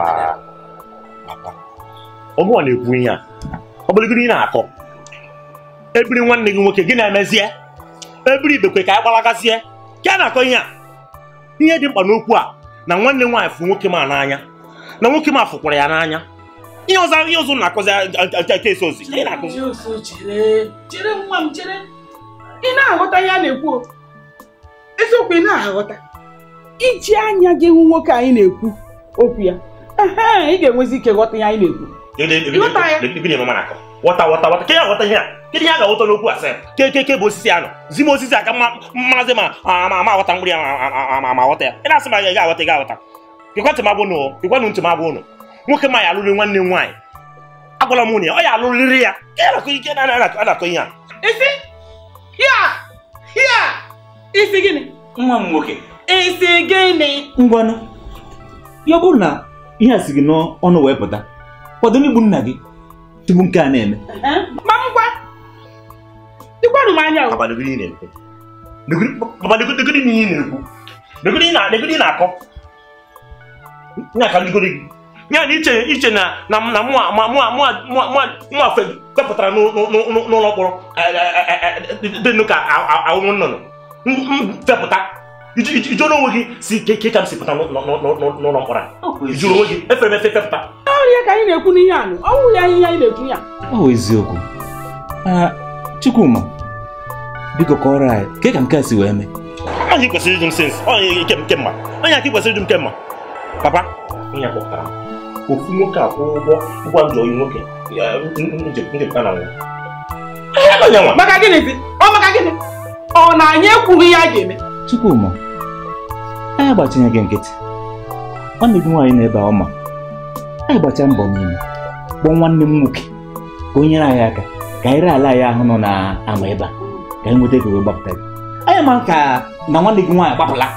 ọ na-ekwu ihe a ọ bụrụgoro ị na-akọ ebiri nwanne gị nwoke gị na-emezie ebiri ibekwe ka anyị gbalagazie ka a na-akọ ihe a ihe dị mkpa n'okwu a na nwanne nwaanyị fụ nwoke ma n'anya na nwoke ma fụkwara ya n'anya ihe ọzọ ihe ọzọ na-akọzi nke esi ozi ị na-aghọta ya na-ekwu eziokwu ị na-aghọta iji anya gị hụ nwoke anyị na-ekwu okwu ya ị ga-enwezi ike ghọta ya anyị na-ekwu wọta wọta wọta ke ya ghọta ihe a kedu ihe a ga-aghọta n'okwu asị kekeke bụ osisi a nọ, zi m osisi a ka aka mmazi ma ama aghọta mgbiri ma aghọta ya ị na-asị m aga aghọta gị aghọta ịkwantị m abụ ụnụ ịkwanụ ntị m abụ ụnụ nwoke ma ya alụrụ nwanne m nwaanyị agwala m nwunye ọ ya alụrịrị ya ke ya nakọ na-akọ ihe a ya ya isi nwa m nwoke isi ngwanụ ya bụrụ na ihe a si gị n'ọnụ wee pụta kwado n'igbu nna gị tupu nke a na-eme ma anya na akọ ya na iche iche na na mwafe n'ụlọ mkpọrọ dịnụ ka ahụhụ onwe gị si ke ka m si pụta n'ụlọ mkpọrọ ijụrụ onwe gị efere efe fepụta ọrịa ka anyị na-ekwu n'ihe anụ ọnwụ ya na-ekwu ya eziokwu biko ke ka si kwesịrị ịjụ m sins onye kemma onye aka kwesịrị m kemma papa onye kpọpụtara m ofu nwoke akwụ ụgwọ ụgwọ njọ oyi nwoke njepụta na nwa maka gịnịzi ọ maka gịnị ọ na anyị ekwughị ihe a ga-eme Chukwuma anyị agbatinye gị nkịtị ọ na-ebi nwaanyị na-ebe ọma anyị gbacha mbọ n'ime kpọọ nwanne m nwoke ka o nyere anyị aka ka anyị ree ala anyị ahụ nọ na ama ebe a ka anyị nweta ego wee gbapụta gị anyị ma ka na nwanne gị nwaanyị gbapụla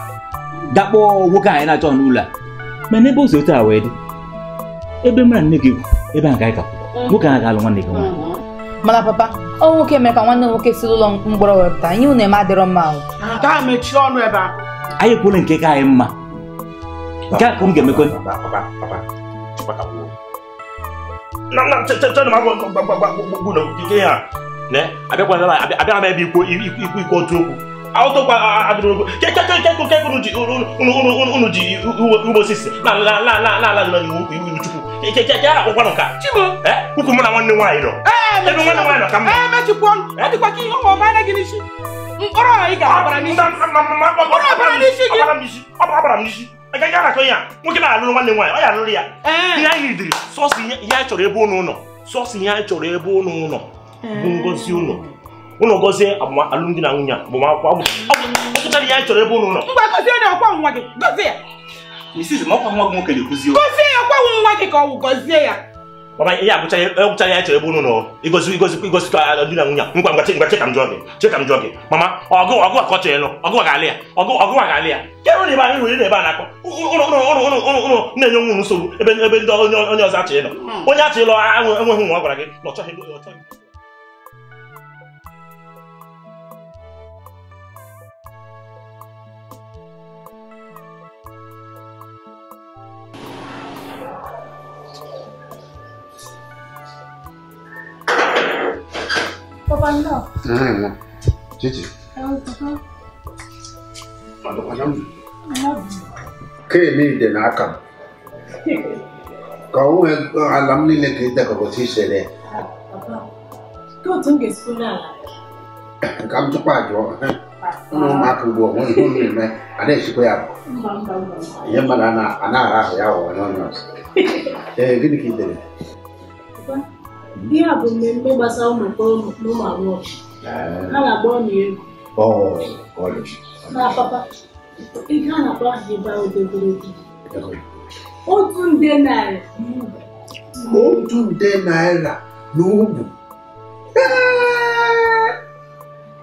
dakpọọ nwoke anyị na-achọ n'ụlọ a ma n'ebe o si otu a wee dị ebe m na nne gị ebe a gaghị kapụ nwoke ahụ ga-alụ nwanne gị nwaanyị mana papa ọ nwoke mere ka nwanne nwoke si ụlọ mkpọrọ wepụta ihe unu eme adịrọ mma mechie ọnụ ebe a anyị kwuru nke ka anyị mma nke a ka m ga-emekwe abịakwana m ebe ikwu ikwu otu okwu awụtụkwa adịrụgo unu ji ugbo osisi na-ala iwu chukwu ukwu mụ na nwanne nwaanyị nọ ebe nwanne ka mma agaghị anakọ ya nwoke na-alụrụ nwanne nwaanyị ọ ya ya ihe anyị chọrọ ebe ụnụ ụlọ sọsọ ihe anyị chọrọ ebe ụnụ ụlọ bụ ngozi ụlọ ụnụ gọzie alụmdi na nwunye agbamakwụkwọ ọgụtara ihe anyị chọrọ ebe ụnụ nọ gọzie ya Mrs. na gọzie ya ọkwa gọzie ya ihe ya chọrọ ebe ụnụ nọ igozi igozi igozikọ na nwunye ngwa ngwa ngwa chekam jụọ gị jụọ gị mama ọ chọrọ ịlụ ọgụ ga-alị ya ọgụ ọgụ ga na ebe anyị ebe a na-akpọ ebe ọ gwara gị na ọ cuando. Mm. Chichi. ka eme n'aka m ka ọ nwee ala m niile ka ịdekọta isere ka m tupu ajụ ụmụaka ugbu onwe ime na-echikwa ya ihe mmadụ na-ara ahụ ya ụwa n'ọnụ ee gịnị dere ihe a bụ mmemme gbasara ụmụ mkpọrọ na ụmụ agbọghọ ha na-agba ọnụ egwu na papa ihe a na-akpọ ahụ ịba odogologo otu nde naira otu nde naira na ugwu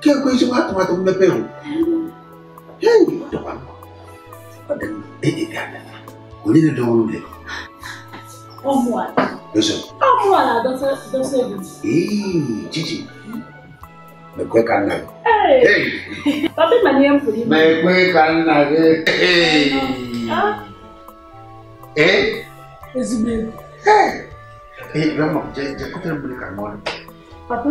kekwe ezigbo atụmatụ mmepe hụ onye dị ọrụ dị Omuala. Listen. Omuala doesn't doesn't. Hey, Chichi. Mekweka na. Hey. Hey. Papi manie mpuli. Mekweka na. Hey. Ah. Eh? Ezibwe. Hey. Eh, grandma, je je kutere mbuli kanona. Papa.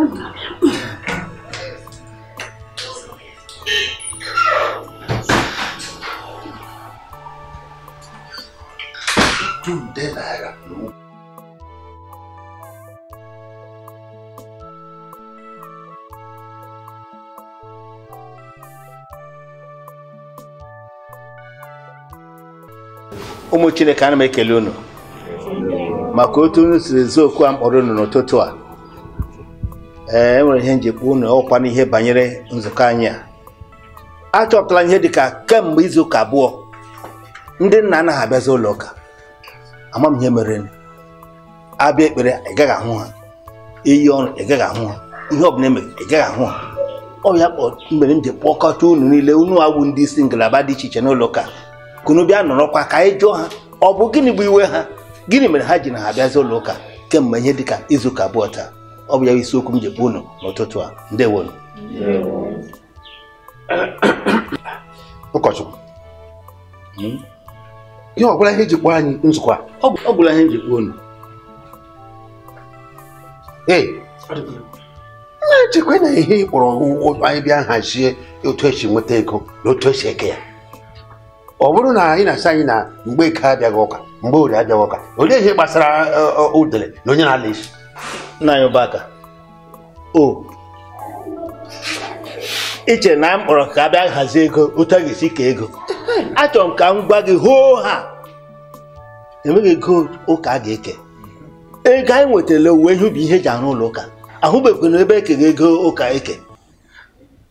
ọtụtụ nde naira na ụmụ chineke ana ekele unu maka otu unu siri okwu a mkpọrọ unu n'ụtụtụ a ee enwere ihe njikwa unu ọkwa n'ihe banyere nzukọ anyị a achọpụtala ihe dị ka kemgbe izu ụka abụọ ndị nna anaghị abịazi ụlọ ụka ama m ihe mere abịa ekpere ị gaghị ahụ ha iyi ọrụ ị gaghị ahụ ha ihe ọbụla emere ị gaghị ahụ ha ọ ya mere m ji kpọkọta unu niile unu awụ ndị isi ngalaba dị iche iche n'ụlọ ụka kunu bịa nọrọkwa ka anyị jụọ ha ọ bụ gịnị bụ iwe ha gịnị mere ha ji na ha abịazi ụlọ ụka kemgbe ihe dịka izu ụka abụọ taa ọ bụ ya bụ isiokwu m ji kpọọ unu n'ụtụtụ a ndewonu ụkọchukwu hmm? ihe ọbụla ihe jikpọ anyị nzukọ ọ bụla ihe jikpọ unu ee na-echekwa na ihe ịkpọrọ kpọrọ anyị bịa hazie otu esi nweta ego na otu esi eke ya ọ bụrụ na anyị na-asị anyị na mgbe eke abịaghị ụka mgbe orie abịaghị ụka olee ihe gbasara udele e, e, na onye na-ala isi nna anyị ụbaka o iche na m kpọrọ ka a bịa hazie ego otu a ga-esi kee ego achọrọ m ka m gwa gị hoo ha enweghị ego ụka a ga-eke ego anyị nwetara uwe ihe ubi ihe eji arụ ụlọ ụka ahụbeghị ebe ekere ego ụka eke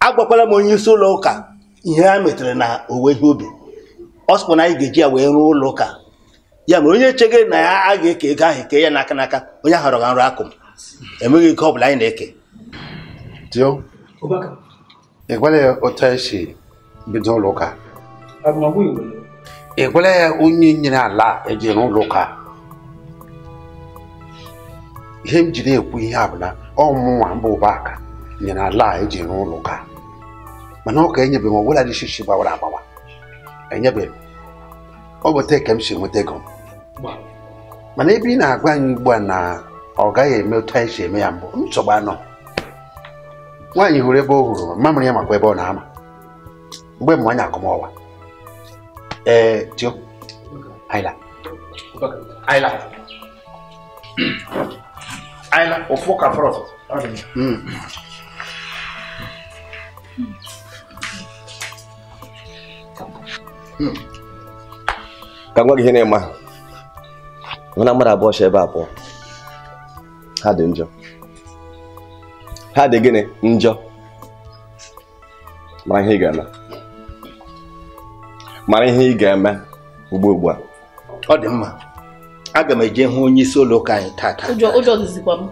agwakwala m onye isi ụlọ ụka ihe ha metere na owuwe ihe ubi ọ sịkwa na anyị ga-eji ya wee rụọ ụlọ ụka ya mere onye chege na ya a ga-eke ego ahụ eke ya n'aka n'aka onye ahụ rọga nrụ akụ m enweghị ego ọ bụla anyị na-eke ị gwara ya otu anyị bido ụlọ ụka ya onye nyere ala eji n'ụlọ ụka ihe m ji ekwu ihe abụla ọmụnwa mba ụba aka nyere ala eji n'ụlọ ụka mana ọ ka enyebeghị m ọbụla dị shishi gbawara agbawa enyebeghị ọ bụ ka m si nweta ego mana ebe ị na-agwa anyị ugbu a na ọ gaghị eme otu anyị si eme ya mbụ nsogbu anọ nwaanyị hụrụ ebe ọ hụrụ mamịrị ya makwa ebe ọ na-ama mgbe mmanya akụmọwa Eh, tío. Ayla. Ayla. Ayla, o fo mm. ka fọrọ. Ka nwa gị ihe na-eme ahụ. Mana mmadụ abụọ si ebe a pụọ. Ha dị njọ. Ha dị gịnị njọ. Mara mara ihe ị ga-eme ugbu ugbu a ọ dị mma aga m eje hụ onye isi ụlọ ụka anyị taata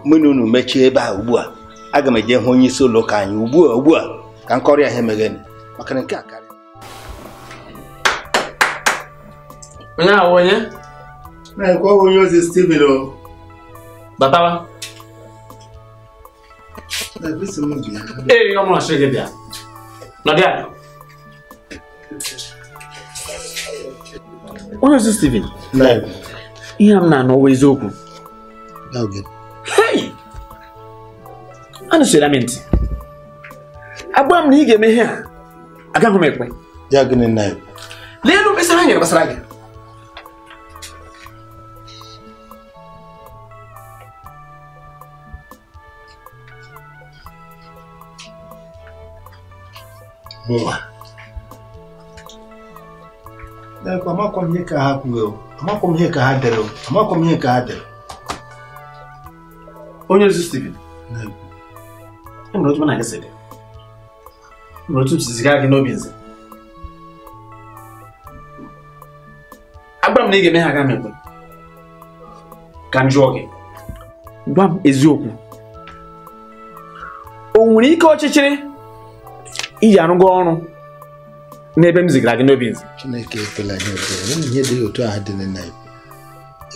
mụ na unu mechie ebe a ugbu a aga m eje hụ onye isi ụlọ ụka anyị ugbu a ugbu a ka nkọrị ahụ emegheni maka na nke a onye onye ozi o batawa ee gị bịa nọdị onye ozi Steven ihe m na-anọwa eziokwu anụsịra m ntị agba m na ị ga emeghe ihe a agaghị m ekwe lee elu mkpesa ha nyere gbasara gị Boa. amakwa m ihe ka ha kwuo amakwa m ihe ka ha dere amakwa m ihe ka ha dere onye ozi Steven e. e enwere otu m na gị sị dị otu m si ziga gị n'obi nze agwa na ị ga-eme ha aga mekwe ka m jụọ gị gwa m eziokwu o nwere ike ọchịchịrị iji arụgo ọnụ. n'ebe m zigara gị n'obi nzi chineke ekele gị ekele ihe dị otu ahụ dị na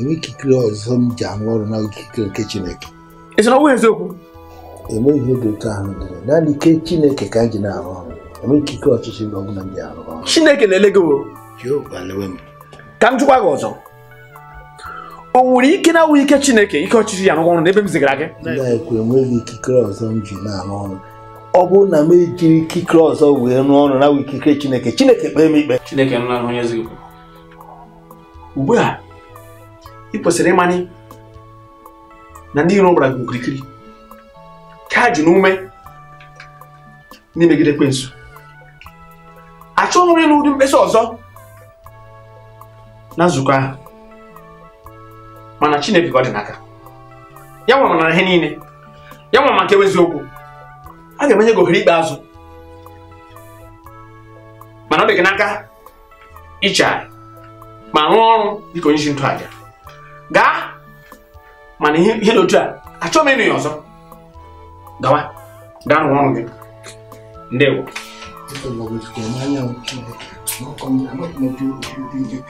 enwe ikikere ọzọ m ji arụ ọrụ na ikikere nke chineke ị sị na ọ bụghị eziokwu enwe ihe dị otu ahụ dị naanị ike chineke ka m ji na-arụ ọrụ enwe ikikere ọchịchị na ọbụla m ji arụ ọrụ chineke na-ele gị ka m jụkwa gị ọzọ o nwere ike na awụghị ike chineke ike ọchịchị ya rụrụ ọrụ n'ebe m zigara gị na enweghị ikikere ọzọ m ji na-arụ ọrụ ọ bụrụ na m ejiri ikikere ọzọ wee rụọ ọrụ na ikikere Chineke Chineke kpee m ikpe Chineke ugbu a ị kwesịrị ịmanye na ndị iro gbara gị okirikiri ka ji n'ume n'imegide ekwensu achọghị m ịnụ ụdị mkpesa ọzọ na nzukọ ahụ mana Chineke ka ọ dị n'aka ya nwere na ihe niile ya nwere maka okwu. a ga-emenye gị ohere ikpeazụ mana ọ dị gị n'aka ichegharị ma rụọ ọrụ dịka onye isi ntụaja gaa mana ihe n'otu a achọghị m ịnụ ya ọzọ gawa gaa rụọ ọrụ gị ndewo Thank you.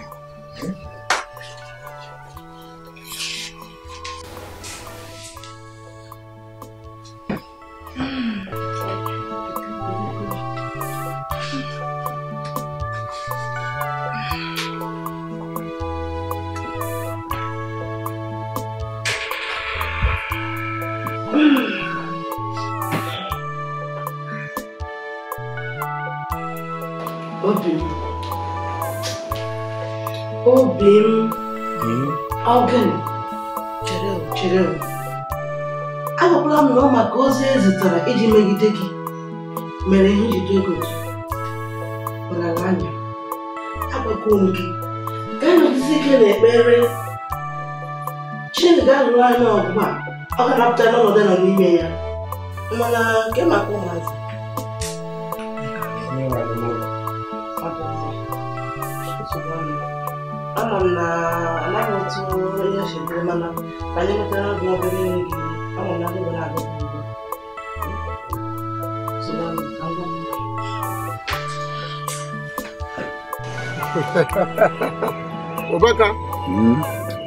ụbaka hmm?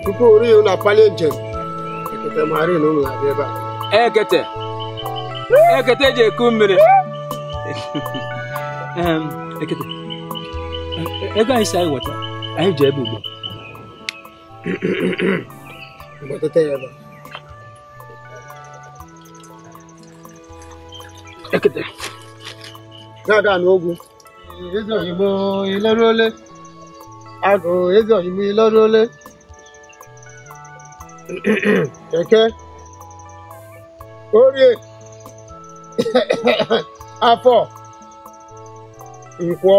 tupu ori unu akpali njem ekete mara na unu na-abịa ebe a ekete ekete eji eku mmiri ekete e, ego anyị si anyị weta anyị ji ebe ugbo wetata ya ebe ekete ga-aga n'ogwu eze oyibo ileru agụụ ego ime lọrụ ole eke orie afọ nkwọ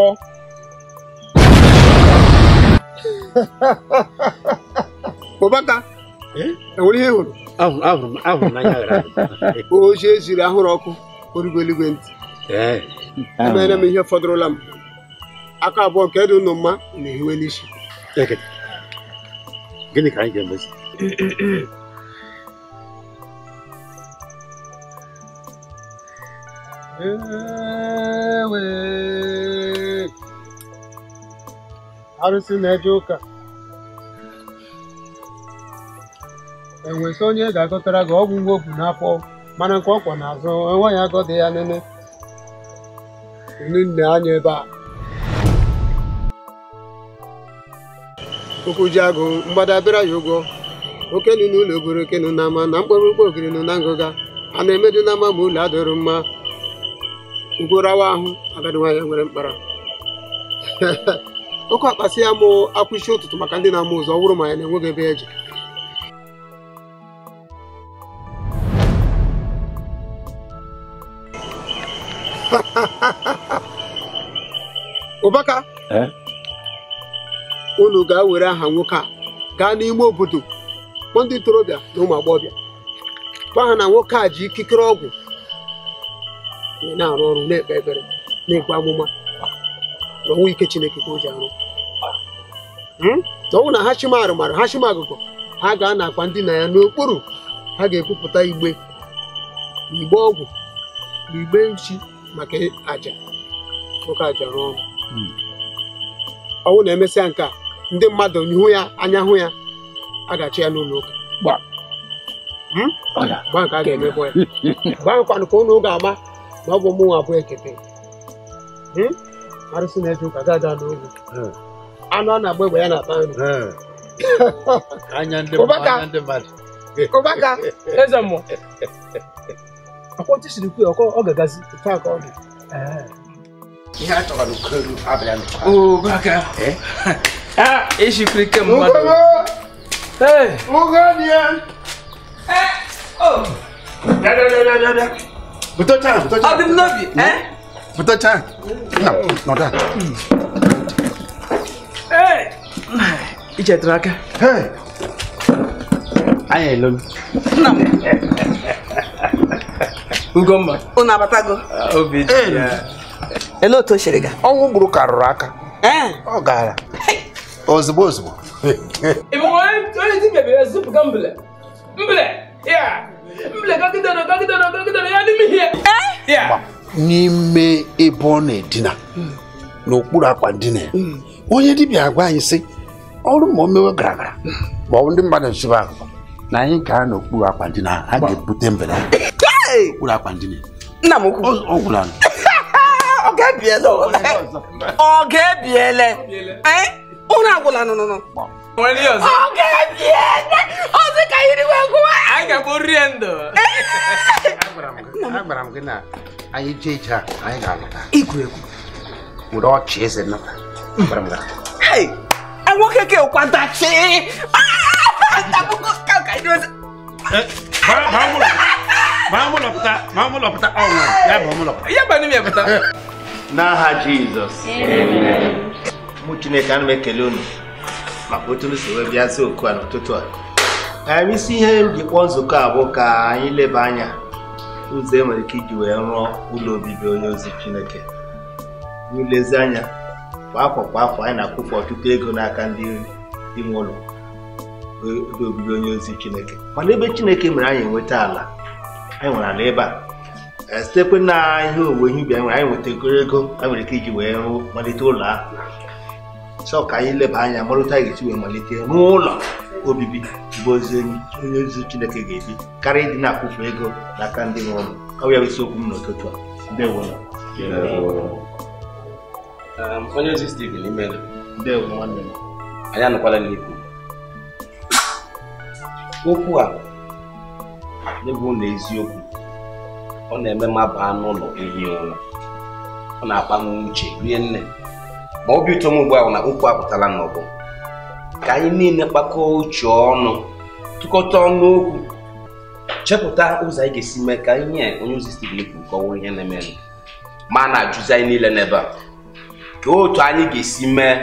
ụbaka enwere ihe hụrụ ahụrụ n'anya gara o ochie ziri ahụrụ ọkụ origo eluigwe ntị emere m ihe fọdụrụla m aka abụọ nke dị unu mma na ehiwe n'isi gịnị ka anyị ga-emezi arụsị na-eje ụka enwesị onye ga-agọtara gị ọgwụ nwa obu n'afọ mana nke ọkwa n'azụ enweghị agọdị ya nene nne anya ebe a Ụkwụjiagụ mgbada abịara ya ụgwọ okenu n'ụlọ ụlọ obere okenu na ama na mkpọrọ ụgbọ ogiri nụ na ngụga a na-emedu n'ama ma ụlọ adịrụ mma ugborawa ahụ agadi nwere mkpara oke akpasị ya mụ akwụisi ụtụtụ maka ndị na-ama ụzọ ọ ma ya na-enweghị ebe eje ụbaka eh? unu gaa were aha nwoke a gaa n'ime obodo kpọọ ndị ntorobịa na ụmụ agbọghọbịa gwa ha na nwoke a ji ikikere ọgwụ na-arụ ọrụ na-ekpe ekpere na ekpe amụma na ọnwụ ike Chineke ka o ji arụ hmm? na ọnwụ na ha chima arụmarụ ha chima agụgụ ha ga na akwa ndị na ya n'okpuru ha ga-ekwupụta igbe igbe ọgwụ na igbe nchi maka aja nwoke aja rụọ ọrụ hmm. ọnwụ na-emesịa nke a ndị mmadụ n'ihu ya anya hụ ya a ga-achị ya n'ụlọ ụka hmm? nke a ga-emebọ ya gbakwanụ ka ụlọ ga-ama na ọ bụ ụmụnwa abụọ ekete hmm? arụsị na-eje ụka gaa gaa n'oge hmm. anụ a na-agba egbe ya na-ata nri ụbaka eze mmụọ akwọntị siri kwuo ọ ga-agazi ofe aka ọ dị ihe a chọrọ n'ukolu abịa n'ụka Ah, esse clique é muito. Ei! O Gania! É! Oh! Dá, dá, dá, dá, dá. Botou tchan, botou tchan. Abre nove, hein? Botou tchan. Não, não dá. Ei! E já troca? Ei! Ai, é louco. Não. Ugomba. O Nabatago. Ah, o vídeo. Ei! Ele não tô enxergando. Olha o Bruno raca, hein? Olha o cara. ozugbo ozugbo n'ime ebe ọ na-edina n'okpuru akwa ndina ya onye dibịa agwa anyị sị ọrụ ma o mewe gara gara ma ndị mmadụ nchiba na anyị gaa n'okpuru akwa ndina ha ga-ebute mbele okpuru akwa ndina nna m ukwu ọ ga-ebiele ọ ụra agwụla nụnụnụ ọzọ ka iriwe gụwa anyị ga-akpụ ndụ agwara m gị na anyị jee ije a anyị ga-alọta igwuregwu were ọchị eze nnata nwoke ka kwadachi ah! eh, eh. n'aha Jizọs mụ chineke ana m ekele unu maka otu unu si wee bịazi oku a n'ụtụtụ a ka isi ihe m ji kpọọ nzukọ a bụ ka anyị leba anya ụzọ e nwere ike iji wee rụọ ụlọ obibi onye ozi chineke n'ilezi anya kwa afọ kwa afọ anyị na-akwụpụ ọtụtụ ego n'aka ndị ime ụlọ ụlọ obibi onye ozi chineke mana ebe chineke mere anyị enweta ala anyị nwere ala ebe a eh, sitekwe na ihe owuwe ihe ubi anyị nwere anyị nweta ego ego anyị nwere ike iji wee malite ụlọ ahụ chọọ ka anyị leba anya marụta anyị ga-esi wee malite n'ụlọ obibi bụ ozi onye ozi chineke ga-ebi karịa ịdị na-akwụfu ego n'aka ndị nwe ọrụ ọ bụ ya bụ isiokwu m n'ụtụtụ a ndewo um, onye ozi Steven Imena ndewo nwanne m anyị anọkwala n'ikwu okwu a n'ebe ụlọ eziokwu ọ na-eme mma baa n'ụlọ ehi ụra ọ na-akpa m uche rie nne ma obi ụtọ m ugbu ahụ na okwu apụtala n'ọbụ ka anyị niile kpakọọ uche ọnụ tụkọta ọnụ okwu chepụta ụzọ anyị ga-esi mee ka anyị nye onye ozi Stephen kwuru kọwụrụ ihe na-eme ma a na-ajụzi anyị niile n'ebe a ka otu anyị ga-esi mee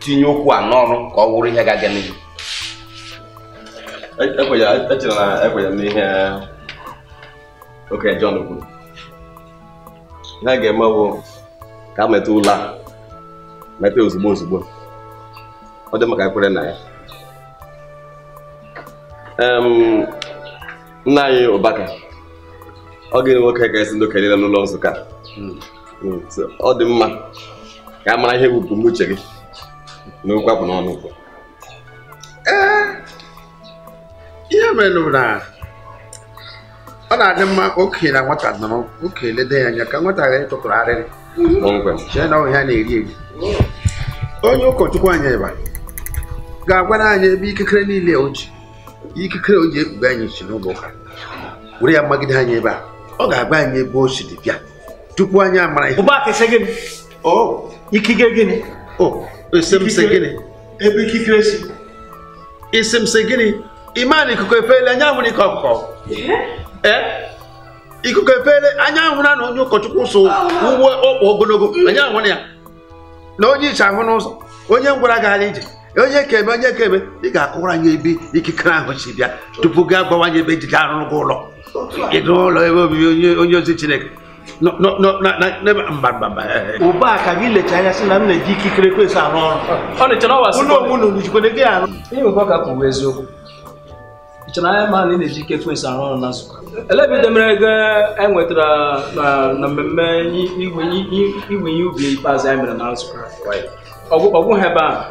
tinye okwu a n'ọrụ ka ọ wụrụ ihe ga-aga n'ihu echere e na ekwenyere n'ihe okenye John kwuru ihe a ga-eme bụ ka a meta ụlọ a mepee ozugbo ozugbo ọ dị maka kwere na ya nna anyị ụbaka ọ gịnị nwoke ga-esi ndị okenye n'ụlọ nzukọ hmm. hmm, ọ dị mma ka a mara ihe bụ uche gị na okwu apụ n'ọnụ ụkwụ eh, ihe merụ na ọ na-adị mma okenye na nwata nọrọ okenye lede ya anya ka nwata ghara ịtụtụrụ arịrị na onye ụkọchukwu anyị ịba ga-agwara anyị ebe ikikere niile o ji ikikere o ji ekpughe anyị si n'ụlọ ụka were ya magide anyị ebe a ọ ga-agba anyị ebe o si dị bịa tupu anyị amara ihe ikike gịnị ebe ikikere si isi m sị gịnị ị maa na ikuku efeela anya amụrụ ike ọkụkọ ee ikuku efere anya na onye ụkọchukwu so ah. ugbo ọkpa ogologo mm. anya ahụ ya na onye iche ahụ n'ụzọ onye ngwara gara ije onye ekebe onye ekebe ị ga-akụwara anya ebe ikikere ahụ si bịa tupu gị agbawanye ebe ejide arụrụ gị ụlọ ụlọ ebe obibi onye ozi chineke ụba ka gị lecha anya sị na m na-eji ikikere kwesị arụ ọrụ ụlọ gị arụ nchana ma na ị na-eji ike arụ ọrụ na nzukọ ele ebe demere enwetara e na mmemme igwe ihe ubi ikpeazụ anyị mere na nzukọ ọgwụ ha ebe ahụ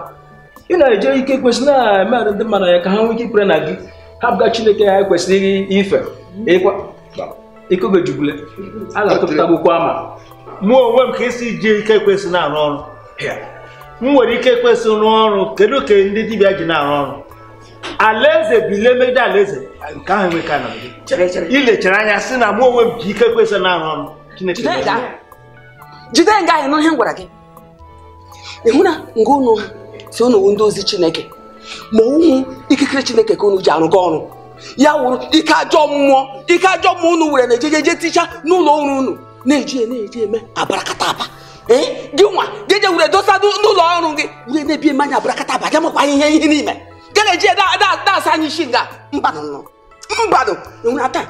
ị na-eje ike kwesịrị na-eme arụ ndị mmadụ ya ka ha nwee ike na gị ha bụga chineke ha kwesịrị ife ikogojubule a ga-atụpụta akwụkwọ ama mụ onwe m ka esi ji ike kwesị na-arụ ọrụ m nwere ike kwesịrị rụọ ọrụ kedu ka ndị dibịa ji na-arụ ọrụ alaeze bụ ile megide alaeze nke ahụ ka na ilechere anya si na mụ onwe m ji ike kwesị na-arụ ọrụ Chineke jide nga ahụ n'ihe m gwara gị ịhụ na nga unu si unu ndị ozi Chineke ma ụmụ ikikere Chineke ka unu ji arụga ọrụ ya wụrụ ike ajọ mmụọ ike ajọ mmụọ unu were na je ticha n'ụlọ ọrụ unu na-eji e, na-eji eme abarakata aba ee gị nwa jeje were dosa n'ụlọ ọrụ gị were na-ebi eme anya abarakata aba ga makwa ihe ihe n'ime geleje da da da sanyi shinga mbano no mbano nwuna taa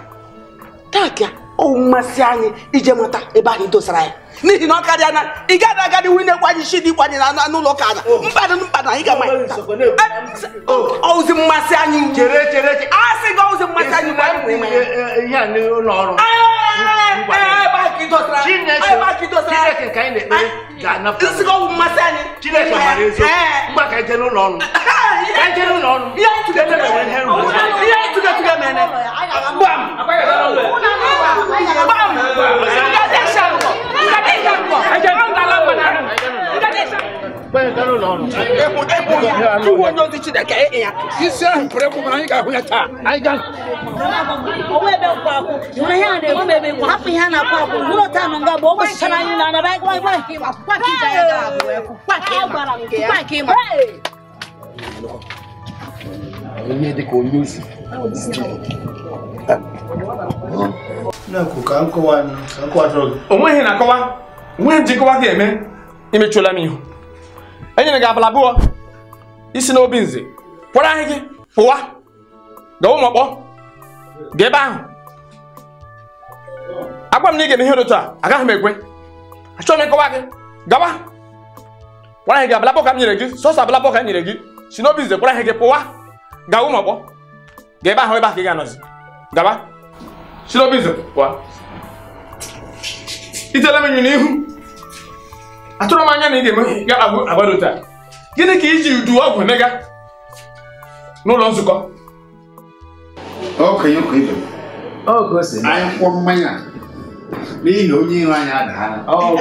taa kia o mmasị anyị ije mata ebe anyị dosara ya n'ihi na ọ karịa na ị gaghị agadi nwunye kwanye isi dị kwanye na n'ụlọ oh. ụka na mkpadụ mkpadụ anyị gama ọụzi oh, eh, mmasị anyị chere chere a sị gị ọụzi mmasị anyị ihe a n'ụlọ ọrụ kidosira chineke ayi b'a kidosira chineke ka ɲi de bɛ gana fɔ nsiko masa ni chineke mari nso n ba ka jɛni nɔ nu ka jɛni nɔ nu i y'a tigɛ tigɛ mɛnɛ i y'a tigɛ tigɛ mɛnɛ bam bam nga de sa nkɔ nga de sa nkɔ nga de sa nkɔ ebu ebu ya tuwo onye ozi chineke ị ya onweghị na-akọwa onweghị ji ga-eme imechụla m ihu enyere gị abala abụọ isi n'obi nze pụrụ ahịa gị pụwa ụmụ ụmụọkpọ ga ebe ahụ agwa m na ị ga-eme ihe otu a agaghị m ekwe achọghị m ịkọwa gị gawa gwara gị abala abụọ ka m nyere gị sọsọ abala abụọ ka m nyere gị si n'obi nze gwara gị pụwa ụmụ ụmụọkpọ ga ebe ahụ ebe ahụ ka ị ga-anọzi gawa si n'obi nze pụwa itele m nyu n'ihu atụrụ m anya na ị ga-eme ya agbado taa gịnị ka iji udu ọgwụ nega n'ụlọ nzukọ okenye ụka ibe anyị kwụọ mmanya n'ihi onye iro anyị ndụ onye iro anyị adaghala anyị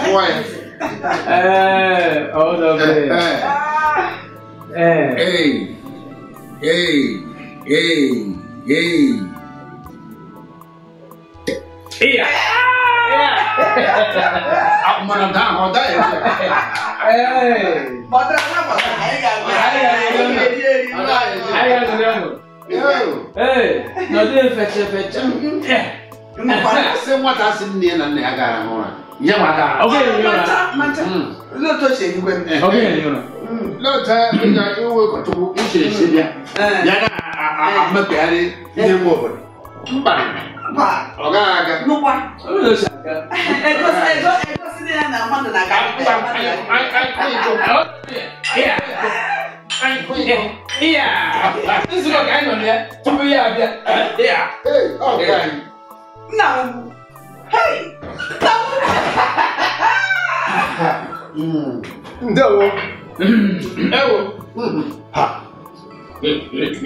kwụọ ya ee ee ee ee Iya. Aku menentang hotel. Eh, baterai apa? Ayo, ayo, ayo, ayo, ayo, Eh, nanti fece fece. Mana semua tasnya ni nanti agak orang. Ya mana? Oke, mana? Mana? Lo tu siapa? Oke, mana? Lo tu punya ibu ketua, ibu siapa? Jangan, aku mesti ada yang mau. 不怕，老干干？弄瓜。哎，你哎，哎，我是，哎哎我哎我是这样南方的那干。哎，哎，哎，可以，可可以哎，可以，可以啊！这是个干啥呢？这边这边，这边。哎，好干。那，哎，那。嗯，那我，那我，哈，你你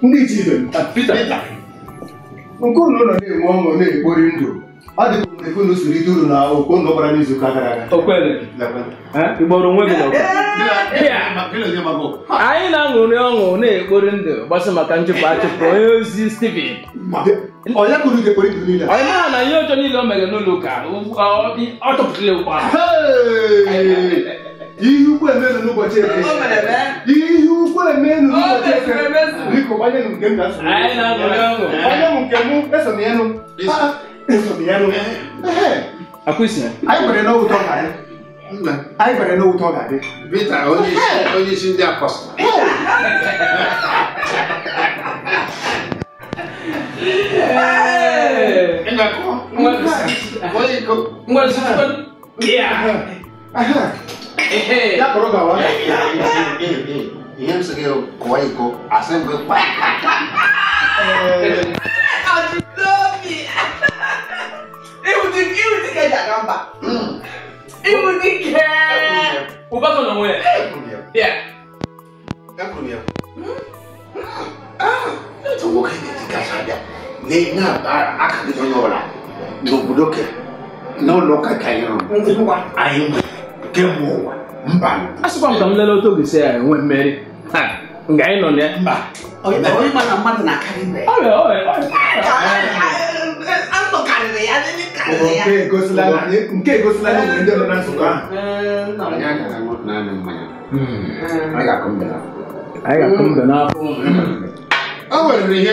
你你几人？啊，几 nke unu nọ na-enwe ọṅụ na-ekpori ndụ ọ dị ka mgbe unu siri ide uru na okpo unu gbara n'izu ụka gara aga igboro onwe gị anyị na-aṅụrị ọṅụ na-ekpori ndụ gbasa maka nchụpụ achụpụ onye ozi Steven onye kụrụ gị ekpori ndụ niile anyị mara na ihe ọjọọ niile o mere n'ụlọ ụka ọ chọpụtara ụkwa ihe ukwu emenu n'ụbọchị eke ihe ukwu emenu n'ụbọchị eke biko gbanye m nke m na nsogbu gbanye m nke m eso m ya nụ eso m ya nụ anyị kwere na ụtọ ka anyị anyị kwere na ụtọ ga-adị Peter onye isi ndị apọstọ Ngwazụ yàtọ̀rọ̀ gà wá. ìyẹn bɛ se ka kɔ yi kɔ a sɛn bɛ kpa. ọtí lómi ìwùdí ìwùdí kẹjà kan bá ìwùdí hmm. kẹ. o bá tọ̀nà wọn yẹ. ẹ kùn yẹ. ne tɔgɔ kɛ ne ti gasa dɛ ne n'a baara a ka di ɲɔgɔn la n'o bolo kɛ n'o lɔ ka kɛ a yɔrɔ a ye mun ye. kemgbe ụwa mba asịkwa m ka m lele otu oge si ya enwe mmeri nga anyị nọ na mba nke hmm. anyị ga-akụ mbe n'afọ o nwere ihe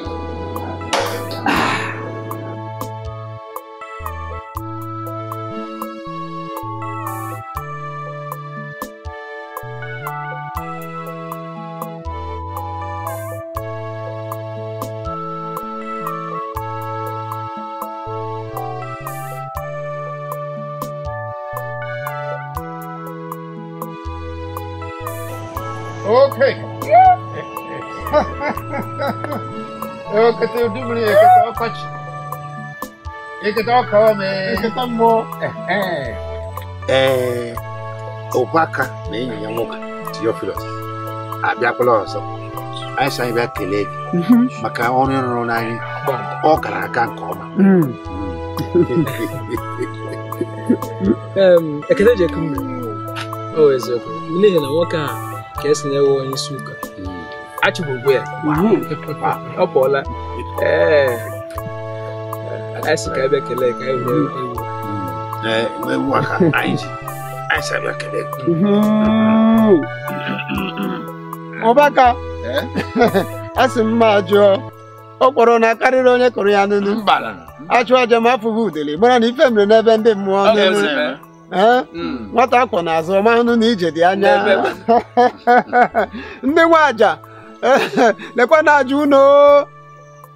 eu que ẹ ojú mi èké tó ọkọ jì èké tó ọkọ mi. èké tó mọ. ẹẹ ọbaka na enyi ya nwoke Theophilus abịakwala ọzọ anyị sị anyị bịa a gị maka ọrụ ịrụrụ n'anyị ọ gara aka nke ọma ekele ji ekum o eziokwu n'ihi na nwoke a ka esi na-ewe onye isi ụka achịbụ ugwe ya ọ pụọla Eh. Eh, anyị eh, ka abịa kelee ka ewu aka anyị ji abịa kelee ọbaka asị mma jụọ ọ kpọrọ na karịrị onye kụrụ ya n'unu achụ aja ma afụghị udele mara na ife mere n'ebe ndị mmụọ n'elu mm. nwata akwọ azụ ọma hụnụ na ije dị anya ndị nwe aja lekwa na aja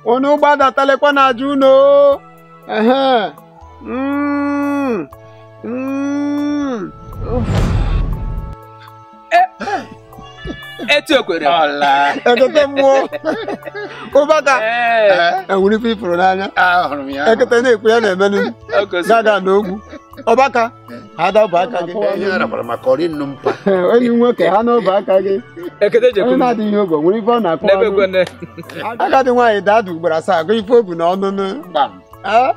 unu gbadatalekwa na aja unu ehe hmm. Hmm. E, etu ekwere ekete mmụọ ụbaka enwere ife ifụrụ n'anya ekete na-ekwe ya na-emenụ gaga na ogwu ọbaka ha dabụ aka gị enyi nwoke ha n'obe aka gị onye na-adịghị ogo nwere ife ọ na-akpọ agadi nwaanyị ugboro asaa gụ ife obu na ọnụnụ ọ ahụ.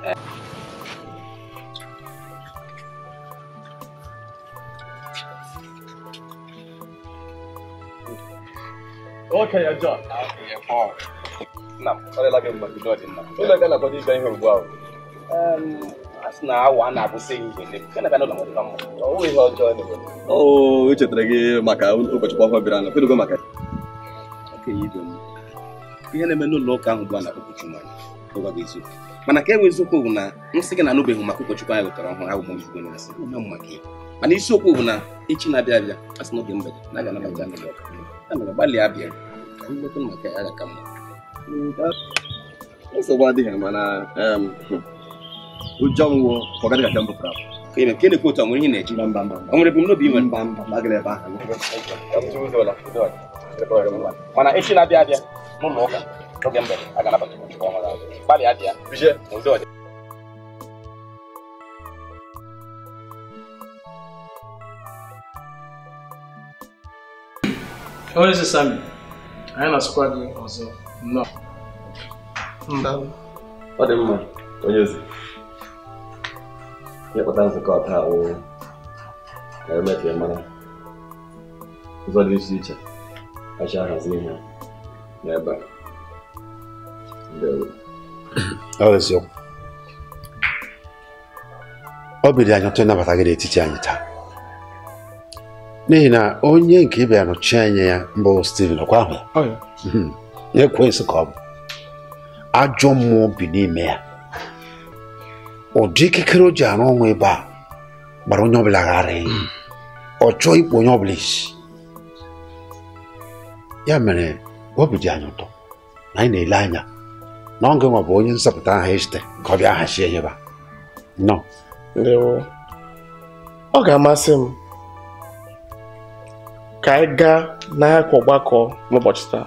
o echetara gị maka ụbọchị ọhụrụ bịara na kedugo maka ihe na-eme n'ụlọ ụka ahụ bụ a na-akpọ ụkọchukwu eziokwu mana ka e nwee eziokwu bụ na gị na anụbeghị maka ụkọchukwu anyị wetara ọhụrụ ahụ bụ mana isiokwu bụ na echi na-abịa abịa a sị n'oge mgbede na aga ya mere gbalịa abịa ka maka ya ka mma nsogbu adịghị mana ụjọ nwụọ ka ọ gaghị mbụ pra kene otu nwere ihe na-eji ọ nwere ebumnobi mba mba agara ebe mana echi na-abịa abịa n'ụlọ ụka n'oge mbe a ga-anabata gbalịa abịa Onye Sami, anyị na-asụkwa gị ọzọ nnọọ. Ọ dị mma, onye ozi. ịkpụta nzukọ taa wụ mara ụzọ dị iche ihe ọ ịnabata gị n'etiti anyị taa n'ihi na onye nke ịbịa nọchi anya ya mbụ hmm. Steven ọkwa ahụ ya ka ọ bụ ajọ mmụọ bi n'ime ya ụdị ikikere o ji arụ ọnwụ ebe a gbara onye ọbụla ghara eyi ọ chọọ ikpu onye ọbụla isi ya mere obi dị anyị ụtọ na anyị na-ele anya na ọ gịnwa bụ onye nzọpụta aha echite ka ọ bịa ihe enyeba nọ ọ ga-amasị m ka anyị gaa n'ahịa ọgbakọ n'ụbọchị taa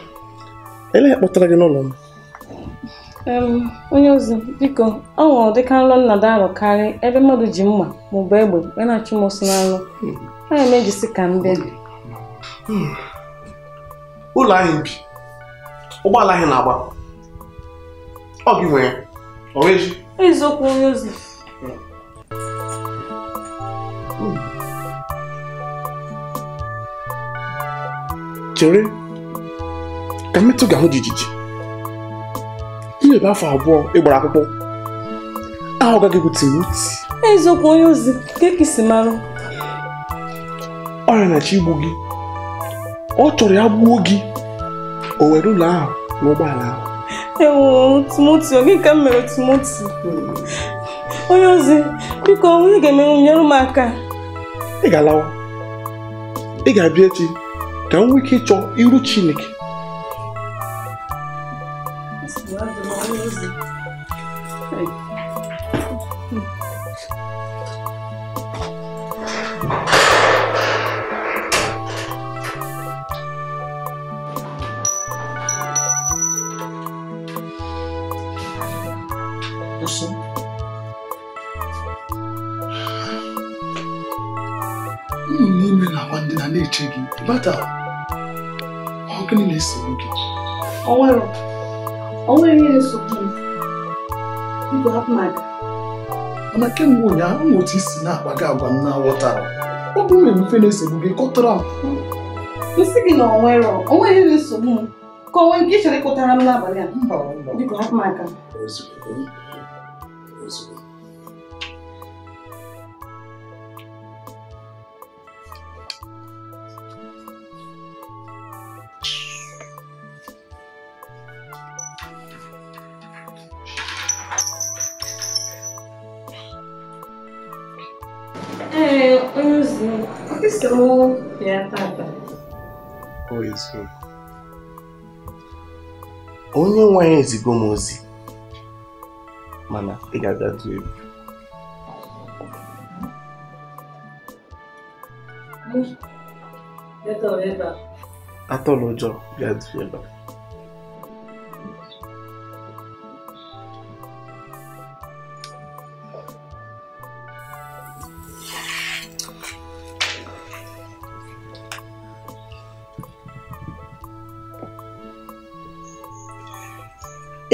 elee kpọtara gị n'ụlọ m onye ozi biko ọ nwụrụ dịka nrọ nnada arọ ebe mmadụ ji mma maọbụ egbe wee na-achụ m ọsọ n'anụ anya m ejisi ka m bịa ụlọ ahụ bi ụgbọala anyị na-agba ọ gị nwere eziokwu onye ozi chere ka mmetụ ga-ahụ jijiji iwebe afọ abụọ ịgbara akwụkwọ ahụ gaghị egwute wuti eziokwu onye ozi ka si marụ ọrịa na-achọ igbu gị ọ chọrọ ya gbuo gị o were ụlọ ahụ na ụgbọala ahụ tumoti timoti gị ka m mere tumoti onye ozi biko onye ga-emenwu nyere m aka ị ga-alawa ị ga-abịa echi ka m nwee ike ịchọ iru chineke nwata ọ gịnị na-esogbu gị o nwere ihe nsogbu igwe hapụ na gị mana kemgbe ụnyaahụ m otu isi na-agba agwa m na-aghọtara ọ bụ nwere mfe na-esogbu gị kọtara m nsị gị na onwere onweghị nsogbu m ka onwe nke ị chọrọ ịkụtara m n'abalị a mba biko hapụ m que Estou tata. Ọ isi. Onye nwe anyị ezigo m ozi mana ị ga-agatu egwu. Atọla ụjọ bịa du ebe a.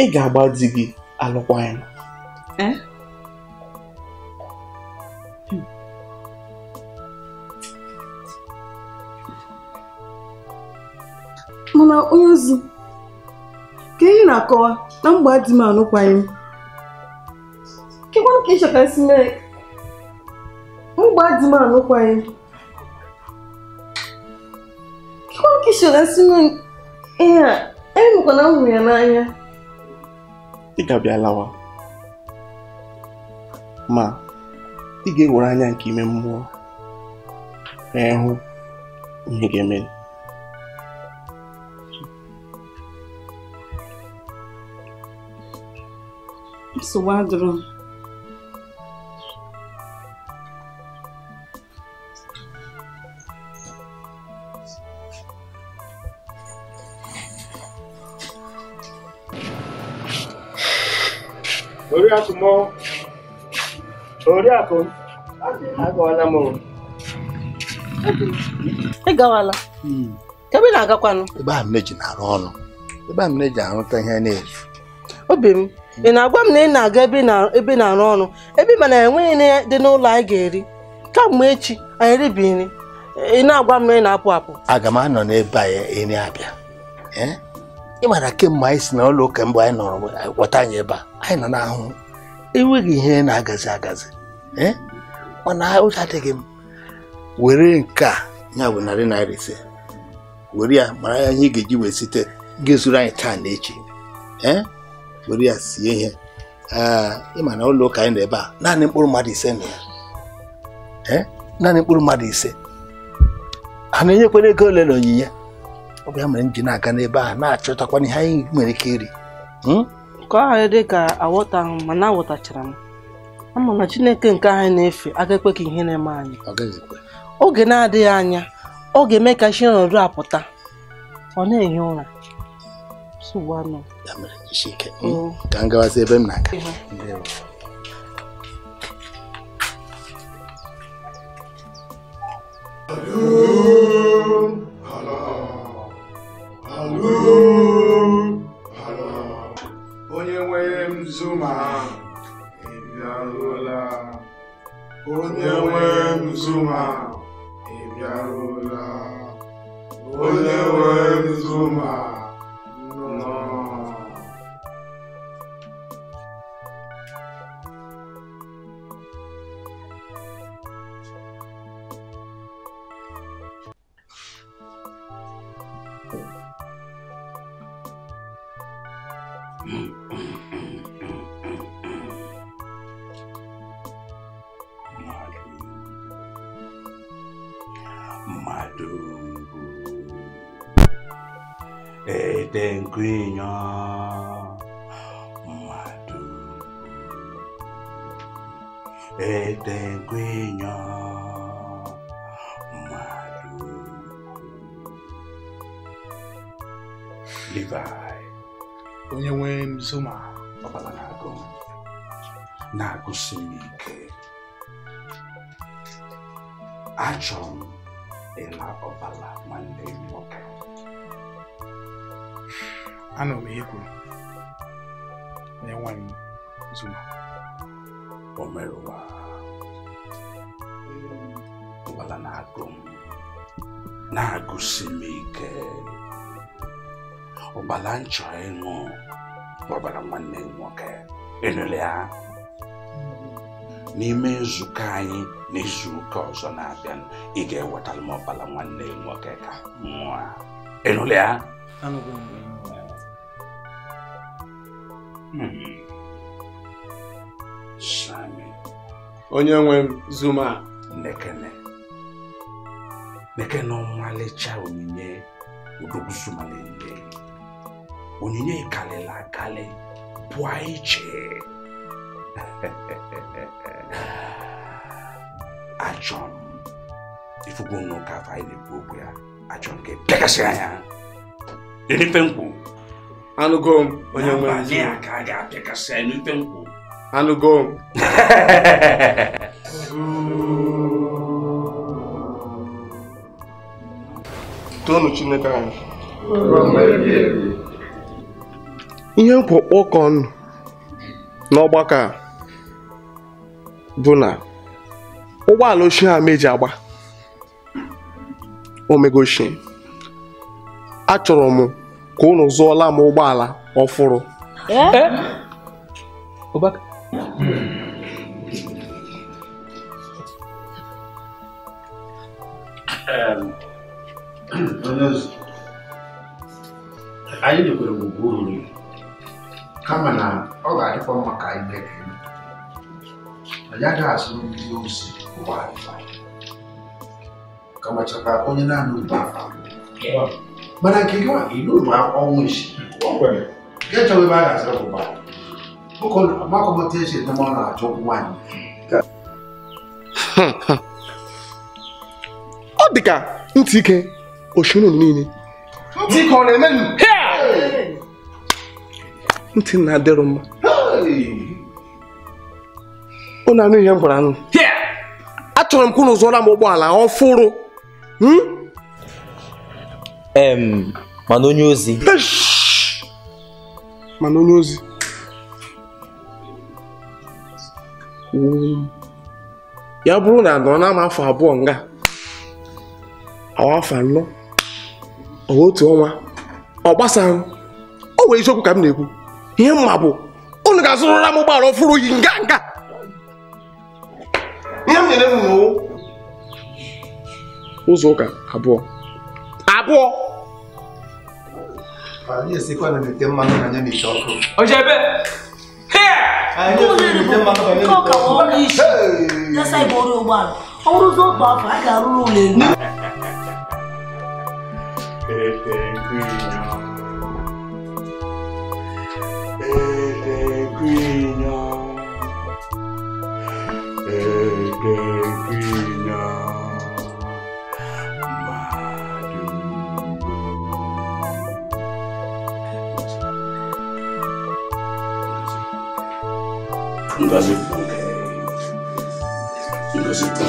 ị ga-agba di gị alụkwaghịm eh? mana onye ozi ka ihe na-akọwa na mgba di m m kekwanụ ka ịchọtasị mee mgba di m alụkwaghịm kekwanụ ka ịchọtasị mere ihe a enwekwana m hụrụ ya n'anya ị ga-abịa lawa ma ị ga-ewere anya nke ime mmụọ wee hụ ihe ga-eme ị gawala hmm. ebe ị na-agakwanụ ebe a mneji na-arụ eji na ọrụ ebe a mneji arụta ihe na-ezu obi m ị na-agwa m na ị na-aga ebe ị na-arụ ọrụ ebe ị mana enweghị ihe dị n'ụlọ anyị ga-eri kamgbe echi anyị ribi nri ị na-agwa m na ị na-apụ apụ aga m anọ n'ebe anyị eri abịa ị eh? mara kemgbe anyị si n'ụlọ ụka mbụ anyị nọrọ wọta anyị ebe a anyị nọ n'ahụhụ enweghị ihe na-agazi agazi Eh? mana ụjọ adịghị m were nke a ya bụ narị naira ise were ya mara ya ihe ị ga-eji wee site gị ezuru anyị taa na echi eh? were ya sie ihe ah, ịma na ụlọ ụka anyị nọ ebe a naanị mkpụrụ mmadụ ise na ya eh? naanị mkpụrụ mmadụ ise a na-enyekwara ego ole na onyinye ọ bụ ya mere m na-aga n'ebe a na-achọtakwana ihe anyị nwere ike iri ka ọ ghara dị ka mana aghọtachara m ama na chineke nke anyị na-efe aga ihe na-eme anyị oge na-adịghị anya ọ ga-eme ka chi nọdụ apụta ọ na-ehi ụra Onye nwere m zuma ịbịaruola onye nwe Nzuma ịbịaruola onye nwe Nzuma etenkwinya mmadụ etenkwinya mmadụ Levi onye nwe Zuma ọbara na-agụ na-agụsi Nagusimike. ike achọrọ m ịla ọbala nwanne m nwoke anọ m ekwuru na enwe m zuma o mere ụwa ụgbala na-agụ m na-agụsi m ike ụgbala nchọ ịṅụ gbabara nwanne m nwoke ịnụle ya n'ime nzukọ anyị n'izu ụka ọzọ na-abịa ị ga-ewetara m ọbara nwanne m nwoke ka mmụọ ịnụle ya onye nwe zuma nekene nekene ọmalịcha onyinye odogwu zuma onyinye karịrị akarị pụọ iche achọ m ifugo n'ụka afọ na-ekwu okwu ya achọ m ka pịakasị e anya n'ife anụgo onye nwe ka a ga-apịakasị anụgo tonu chineke anyị ihe m kwụ n'ọgbakọ a bụ na ụgbọala ochie ha meji agba omegoshi achọrọ m ka unu zụọla m ụgbọala ọfụrụ eh? Eh? n'ozu anyị nyekwere gwugwu nri kama na ọ ga-adịkwa mma ka anyị anyị agaghị azụ ndị ozi kamachakwa onye naanị mana nke gị n'ụlọ ọnwụ isi ọ na-achọ nwaanyị dịka ntị ike oshi unu niile ntị na-adịrị mma unu anụ ihe m gwara anụ achọrọ m ka unu zụọra m ụgbọala ọfụrụ hmm? mana onye ozi mana onye ozi hmm. ya bụrụ na nọ na afọ abụọ nga awa afọ anọ otu ọnwa ọ gbasaghị o were isiokwu ka m na-ekwu ihe mma bụ unu ga-azụrụra m ụgbọala ọfụrụ yi nga nga ihe m nyere m n'ụwa ụzọ ụka abụọ abụọ ojebe ọ bụrụzi otu afọ a ga-arụrụ ụlọ elu It's Inquino. It's Inquino. It's Inquino. Ngozi Funke. Ngozi Funke.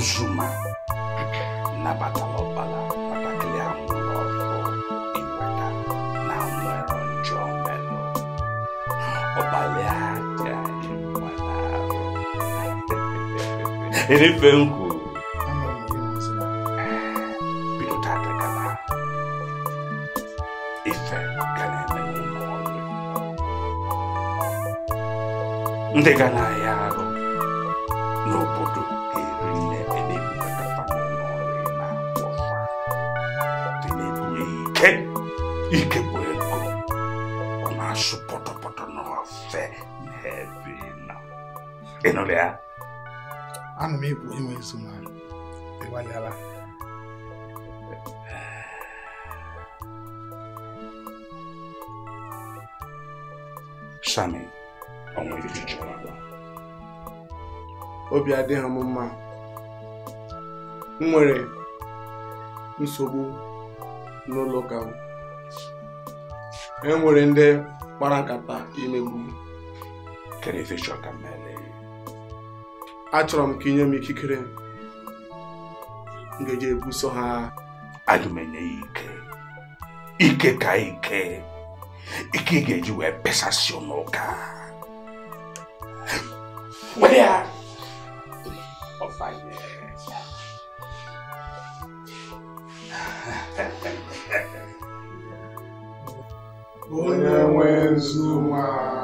Juma nabatalọbala nabatalị ahụ n'ọfọ ịgbata na nwere njọ melụ ọbalị na efe nkwu bido tata gaba ife ga na-eme ndị ga na ịnụrụ ya ana m ekwu enwe na ịgbalịala shami obi adịghị m mma m nwere nsogbu n'ụlọ ụka m e nwere ndị kpara nkata imegbu achọrọ m ka inye m ikikere m ebuso ha aga ya ike ike ka ike ike ị ga-eji wee pesasịọ n'ụka were onye nwe zuma